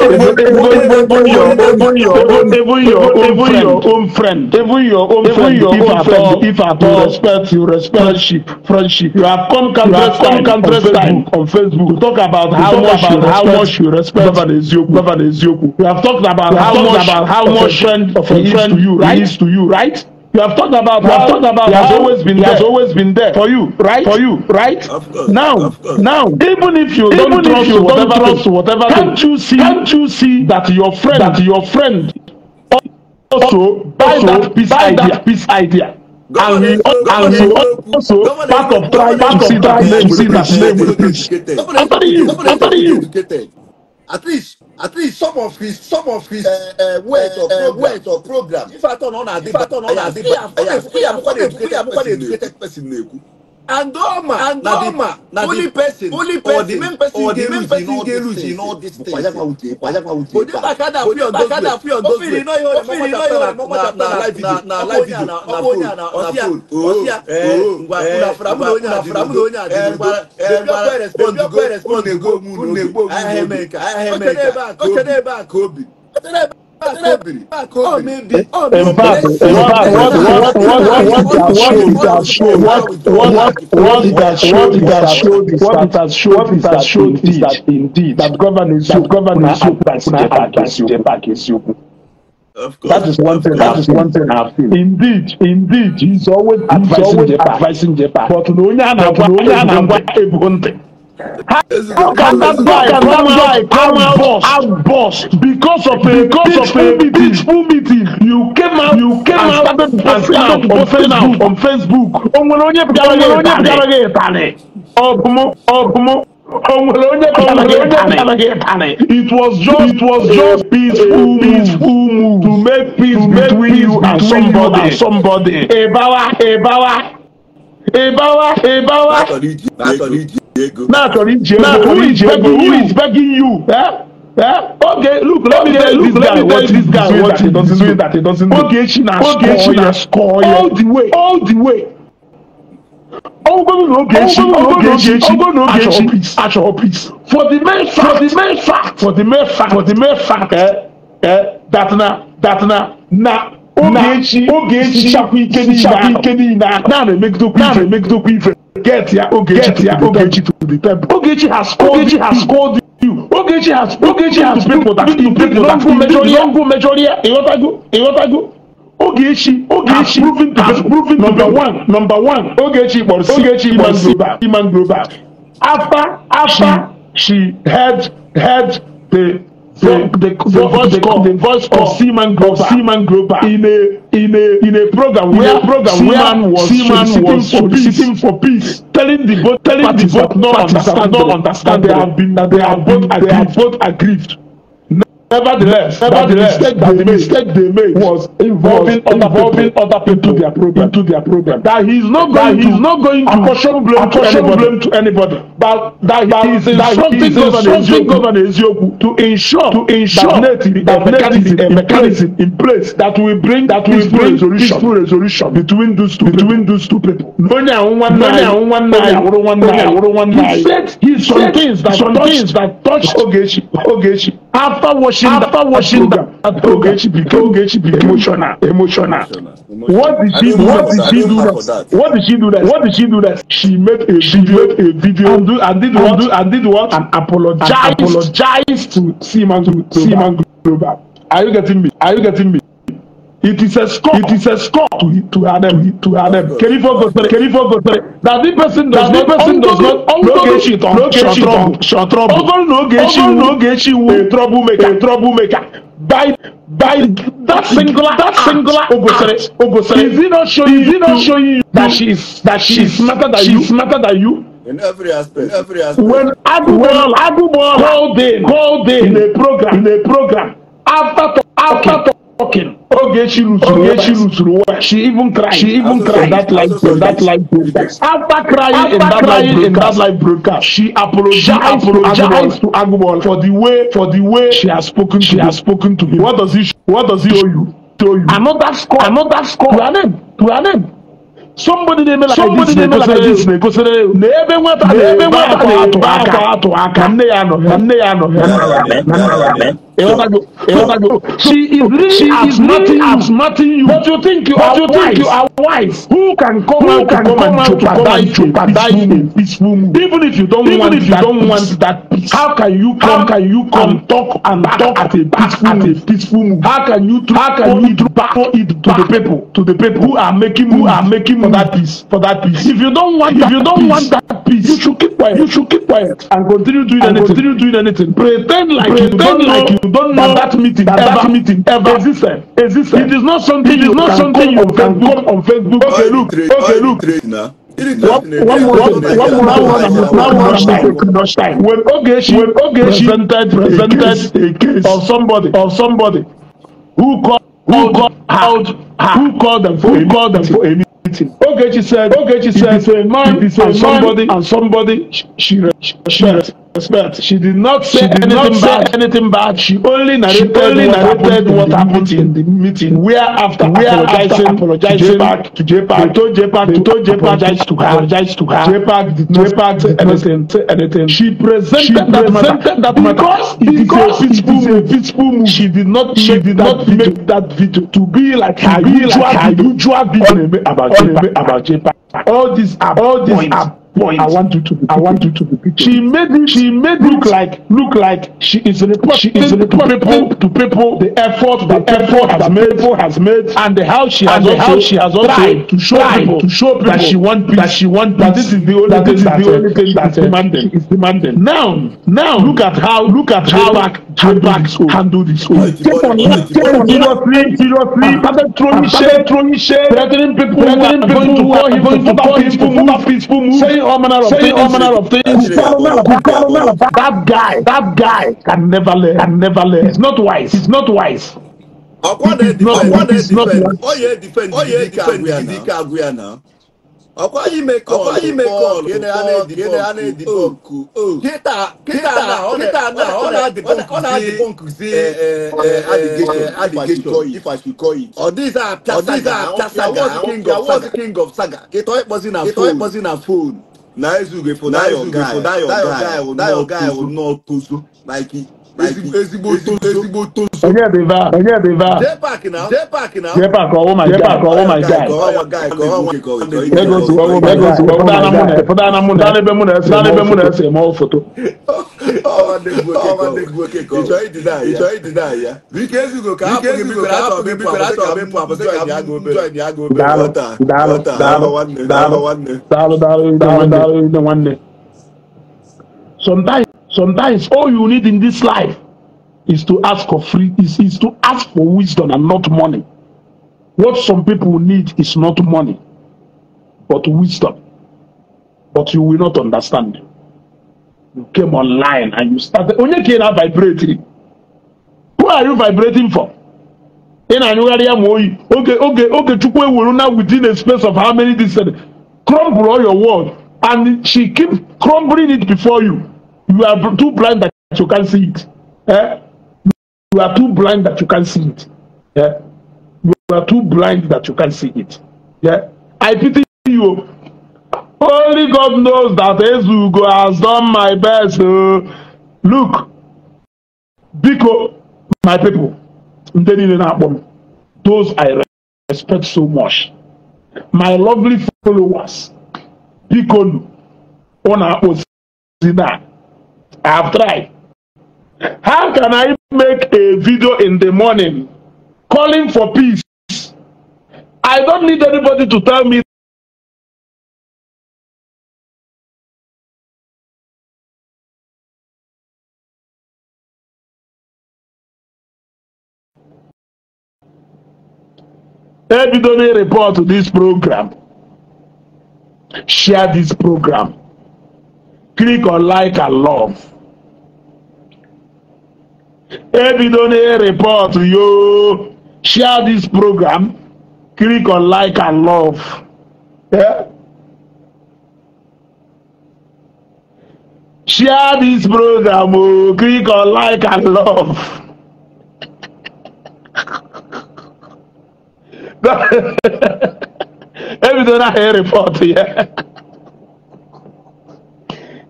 friend, even your own friend, if at all, if at all, respect, you respect friendship, friendship. You have come countless time on Facebook to talk about how much about how much you respect Governor Ezioku. Governor Ezioku. You have talked about how much about how much friend of a friend you right is to you right. You have talked about. You have talked about. He has always been. He has always been there for you. Right. For you. Right. Of course, now. Of course. Now. Even if you even don't trust you whatever don't trust thing, whatever can't you see? Can't you see that your friend that your friend also buy that peace idea. That peace idea. Governor, and we governor, also governor, part of try, to see that name, will that name. After you, after you. At least at least some of his some of his uh, uh, words or uh, words or program. if i turn on adiba turn on adiba i am kwade educated person na-ekwu and Goma, and Goma, only person, only person, main person, or the main person, they lose in all these things. Odebakada free on Odebakada free on those things. Ofiri no yore, ofiri no yore, na na na na live video, na phone, na phone. Osia, ngwa kula framu onya, framu onya, ngwa ngwa respond, ngwa respond, ngwa ngwa. I am America, I am America. Kobe, Kobe what, has Of course. That is one thing. That is one thing I've seen. Indeed, indeed, he's always he's advising always Jepa. advising Jepa. But no, no, no, no, no, no, no, no, no, no, no, no, no, no, no, no, no, no, This How can that guy come out, come out, out, because of a because of a peaceful meeting? You came out, you came out and started posting out on Facebook. Onwere onye pụtara gị ịtanị. Ọbụmụ ọbụmụ onwere onye pụtara gị ịtanị. It was just it was just peaceful peaceful move to make peace between you and somebody. Somebody. Ịbawa ịbawa ịbawa ịbawa. Now, now who is begging you? Who is begging you? Eh? Eh? Okay, look, let okay, me tell look, let me tell this guy what he doesn't do. That he doesn't do. Okay, she na okay, na score all the way, all the way. Ogogo no Ogechi, Ogechi, Ogogo no Ogechi, Acho please. For the main fact, for the main fact, for the main fact, for the main fact, eh, eh, that na, that na, na, Ogechi, Ogechi, Chapu Ikeni, Chapu Ikeni, na, na na emegidokwu ife, na na emegidokwu get ya Ogechi Ogechi to the temple. Ogechi has called Ogechi has called you. Ogechi has Ogechi has people that you people that go measure here. Don't go measure here. Eyotago Eyotago. Ogechi Ogechi proven has proven number one number one. Ogechi Borsi Ogechi Iman Global Iman Global. After after she had had the from the, the, voice the, call, the voice of Seaman Groper, Seaman Groper in a in a in a program in where a program Seaman where was Seaman soliciting, was for, peace, for peace, telling the both telling the vote, not understand, not understand that they have been that they have both they have both aggrieved. Nevertheless, nevertheless, the mistake they mistake they made was involving, was involving other people into their program. Into their program. That he is not going, that he not going to apportion blame, apportion to blame to anybody. But that, he is instructing Governor Ezioku to ensure, to ensure that, that, that mechanism, a mechanism in place that will bring that will bring resolution, peaceful resolution between those two between those two people. Lónìí àwọn wọn náà àwọn wọn náà àwọn wọn náà àwọn wọn He said he said some things that touched Ogechi Ogechi after washing after the, washing that Togechi became became emotional emotional. What did she do? What did she do that? What did she do that? What did she do that? She made a she video, made a video and, do, and did what? and did what? And apologized, and apologized to Seaman to Seaman Global. Are you getting me? Are you getting me? It is a score. It is a score to to Adam to Adam. Can you Kerifo Gosere. That the person does not person does not blokechi blokechi trouble. Ogon Nogechi Nogechi a troublemaker a troublemaker. By by that singular that singular Ogosere Ogosere. Is he not showing is he not showing you that she is that she is smarter than you smarter than you. In every aspect. In every aspect. When Agubol Agubol called in called in a program in a program after after talking. Okay. she lose, Oge oh, she lose. She even cried. She even cried that life. in that life. broadcast. After crying in that life in that live broadcast, she apologized to Agboola for the way for the way she has spoken. She has spoken to him. What does he What does he owe you? To you. that score. Another score. To her name. To her name. somebody dey make like this na ekosere ekosere na ebe nweta na ebe nweta na-ebe akọ atụ aka nne ya nọ nne ya nọ. She is she is nothing as nothing you. But you think you are you wise. think you are wise. Who can come Who out to come out to come and jeopardize a peaceful move? Even if you don't even want if you don't want that peace. How can you come? How can you come talk and talk at a peaceful at a peaceful move? How can you how can you throw it to the people to the people who are making who are making for that peace for that peace? If you don't want if you don't want that peace, you should keep quiet. You should keep quiet and continue doing anything. Continue doing anything. Pretend like you don't know don't know that, that meeting that, ever, that meeting ever existed. existed. It is not something it is not something you can go on Facebook. Okay, look, okay, look. When Ogechi when Ogechi presented presented a case of somebody of somebody who called who called out who called them for who called them for a meeting meeting. Ogechi said, Ogechi said, if man, if somebody, and somebody, she, she, she, she respect. She did not say, she did anything, not say bad. anything bad. She only narrated, she only what, narrated happened what happened in the meeting. Where after where apologizing, apologizing to JPAC, to JPAC, they told JPAC, told JPAC apologize to her, apologize to her. JPAC did not say anything, anything. She presented, she presented that matter, that because it is a peaceful move. Peaceful move. She did not she make did that not video. make that video to be like her usual video about JPAC. All these are all these are point. I want you to. Be, I want you to. Be she made it. She made look it like look like she is reporting. She is reporting to people the effort the effort has made people has made and the how she has and also how she has also tried to show tried people to show people that she want peace, that she want that this is the only that this is the only thing that is demanding is demanding. Now now look at how look at how back handle this home handle this oh. seriously that guy that guy can never learn can never learn it's not wise it's not wise ọkọ na ẹ dìfẹ ọyẹ dìfẹ ndidi ka agwe ana ọkwa yi mekọl ọkwa yi mekọl gịnị a na-edipọ nku kịta kịta na kịta na ọ na-adịpọ nkuzi adịgechọ ọdịza apịa saga ọwọzi king of saga kịta ịkpọzi na ịkpọzi na fon na ezughị fo na your guy that your guy will not tozu like ezigbo tozu. onye dị va onye dị va jepa ka ọwụ ma jepa ka ọwụ ma gai ego si ọwụ ma ego si ọwụ dana mụ na dana mụ dana ebe mụ na ese dana ebe mụ na ese ma ọ foto. ịchọ ịdịna ya bike ezigo ka apụ gị bibere atọ gị bibere atọ gị pụ apụsị ka abụ njọ ndị agụ obere ghọta ghọta daalụ daalụ daalụ daalụ daalụ daalụ nwanne sometimes sometimes all you need in this life is to ask for free is, is to ask for wisdom and not money what some people need is not money but wisdom but you will not understand you came online and you started onye ka ị na vibrating? who are you vibrating for ị na-anyụgharị ya ma oyi oge oge oge chukwu ewere na within a space of how many days crumble all your world and she keep crumbling it before you You are too blind that you can't see it. Eh? You are too blind that you can't see it. Yeah? You are too blind that you can't see it. Yeah? I pity you. Only God knows that Ezugo has done my best. Uh, look, Biko, my people, those I respect so much. My lovely followers, Biko, on our own. I've tried. How can I make a video in the morning calling for peace? I don't need anybody to tell me Everybody report to this program. Share this program. Click on like and love. ebido na report yo share this program click on like and love yeah? share this program o oh. click on like and love ebido na report Yeah.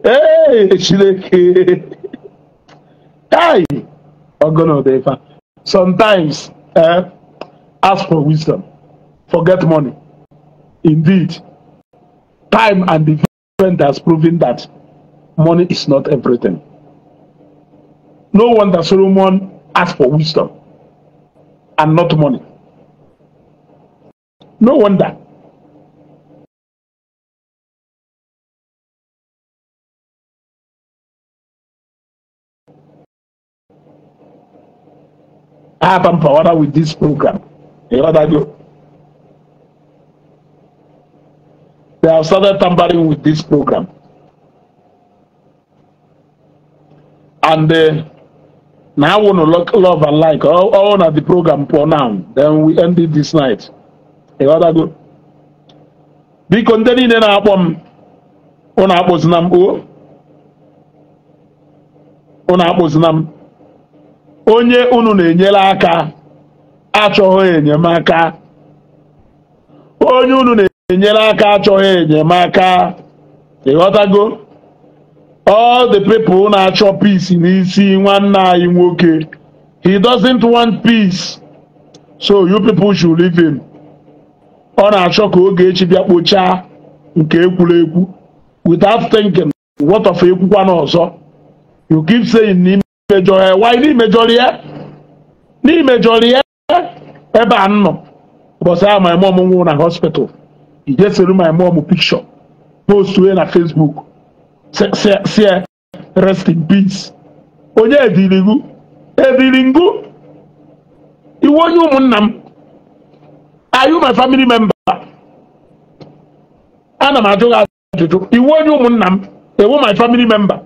Hey, chineke kai Ogbono Odefa. Sometimes, eh, ask for wisdom, forget money. Indeed, time and event has proven that money is not everything. No wonder Solomon ask for wisdom and not money. No wonder. have empowered with this program. You know that they have started tampering with this program. And uh, now I want to look love and like all, all the program for now. Then we end it this night. You know that good. Biko ndị niile na-akpọ m ụnụ akpụzina m o ụnụ akpụzina m onye unu na-enyere aka achọghị enyemaka onye unu na-enyere aka achọghị enyemaka ịghọtago all the people na-achọ peace n'isi nwanne anyị nwoke he doesn't want peace so you people should leave him ọ na-achọ ka oge echi bịa kpochaa nke ekwuregwu without thinking what of ekwukwa n'ọzọ you keep saying imejọrọ ya wanyị ya n'imejọrọ ya ebe a nọ ụbọchị ahụ my mom nwụrụ na hospital ijesiri my mom picture post na Facebook si rest in peace onye edirigu ebiringu iwe onye ụmụnna m my family member ana m ajụ gị ajụjụ onye ụmụnna m ewu my family member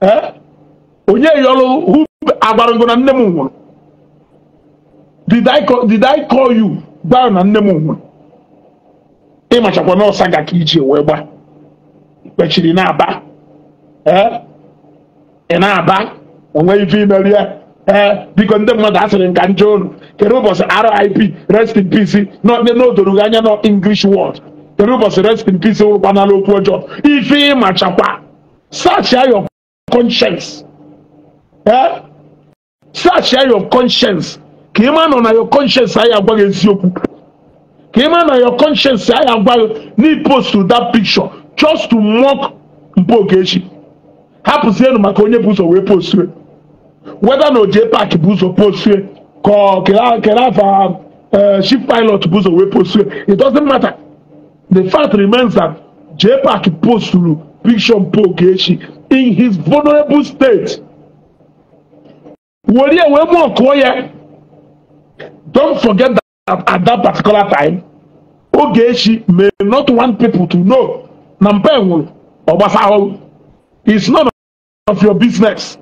eh? onye yọrọ who agbara ngo na nne m nwụrụ did I call, you gbaa na nne m nwụrụ ịmachakwa n'ọsa ga ka iji wee gba kpechiri na-aba ị na-aba onwe ife imeri ya ee biko ndị mmadụ asịrị nka nje olu kedu ụbọchị RIP rest in peace n'odoro anya nọ English word kedu ụbọchị rest in peace wụrụkwanala okwu ọjọọ ife ịmachakwa search your conscience search ya your conscience ka ị ma nọ na your conscience anyị agwaghị eziokwu ka ị ma na your conscience anyị post to that picture just to mock Mpogechi hapụzienụ maka onye bụ ụzọ wee postue weda na oje pak bụ ụzọ postue ka kere afa chief e, pilot bụ ụzọ wee postue it doesn't matter the fact remains that J Park posturu picture Mpogechi in his vulnerable state wòlíì ẹ̀wọ̀n mú ọ̀kọ́ yẹ don't forget that at, that particular time oge echi may not want people to know na mpa enwuru ọgbasa ahụhụ it's none of your business.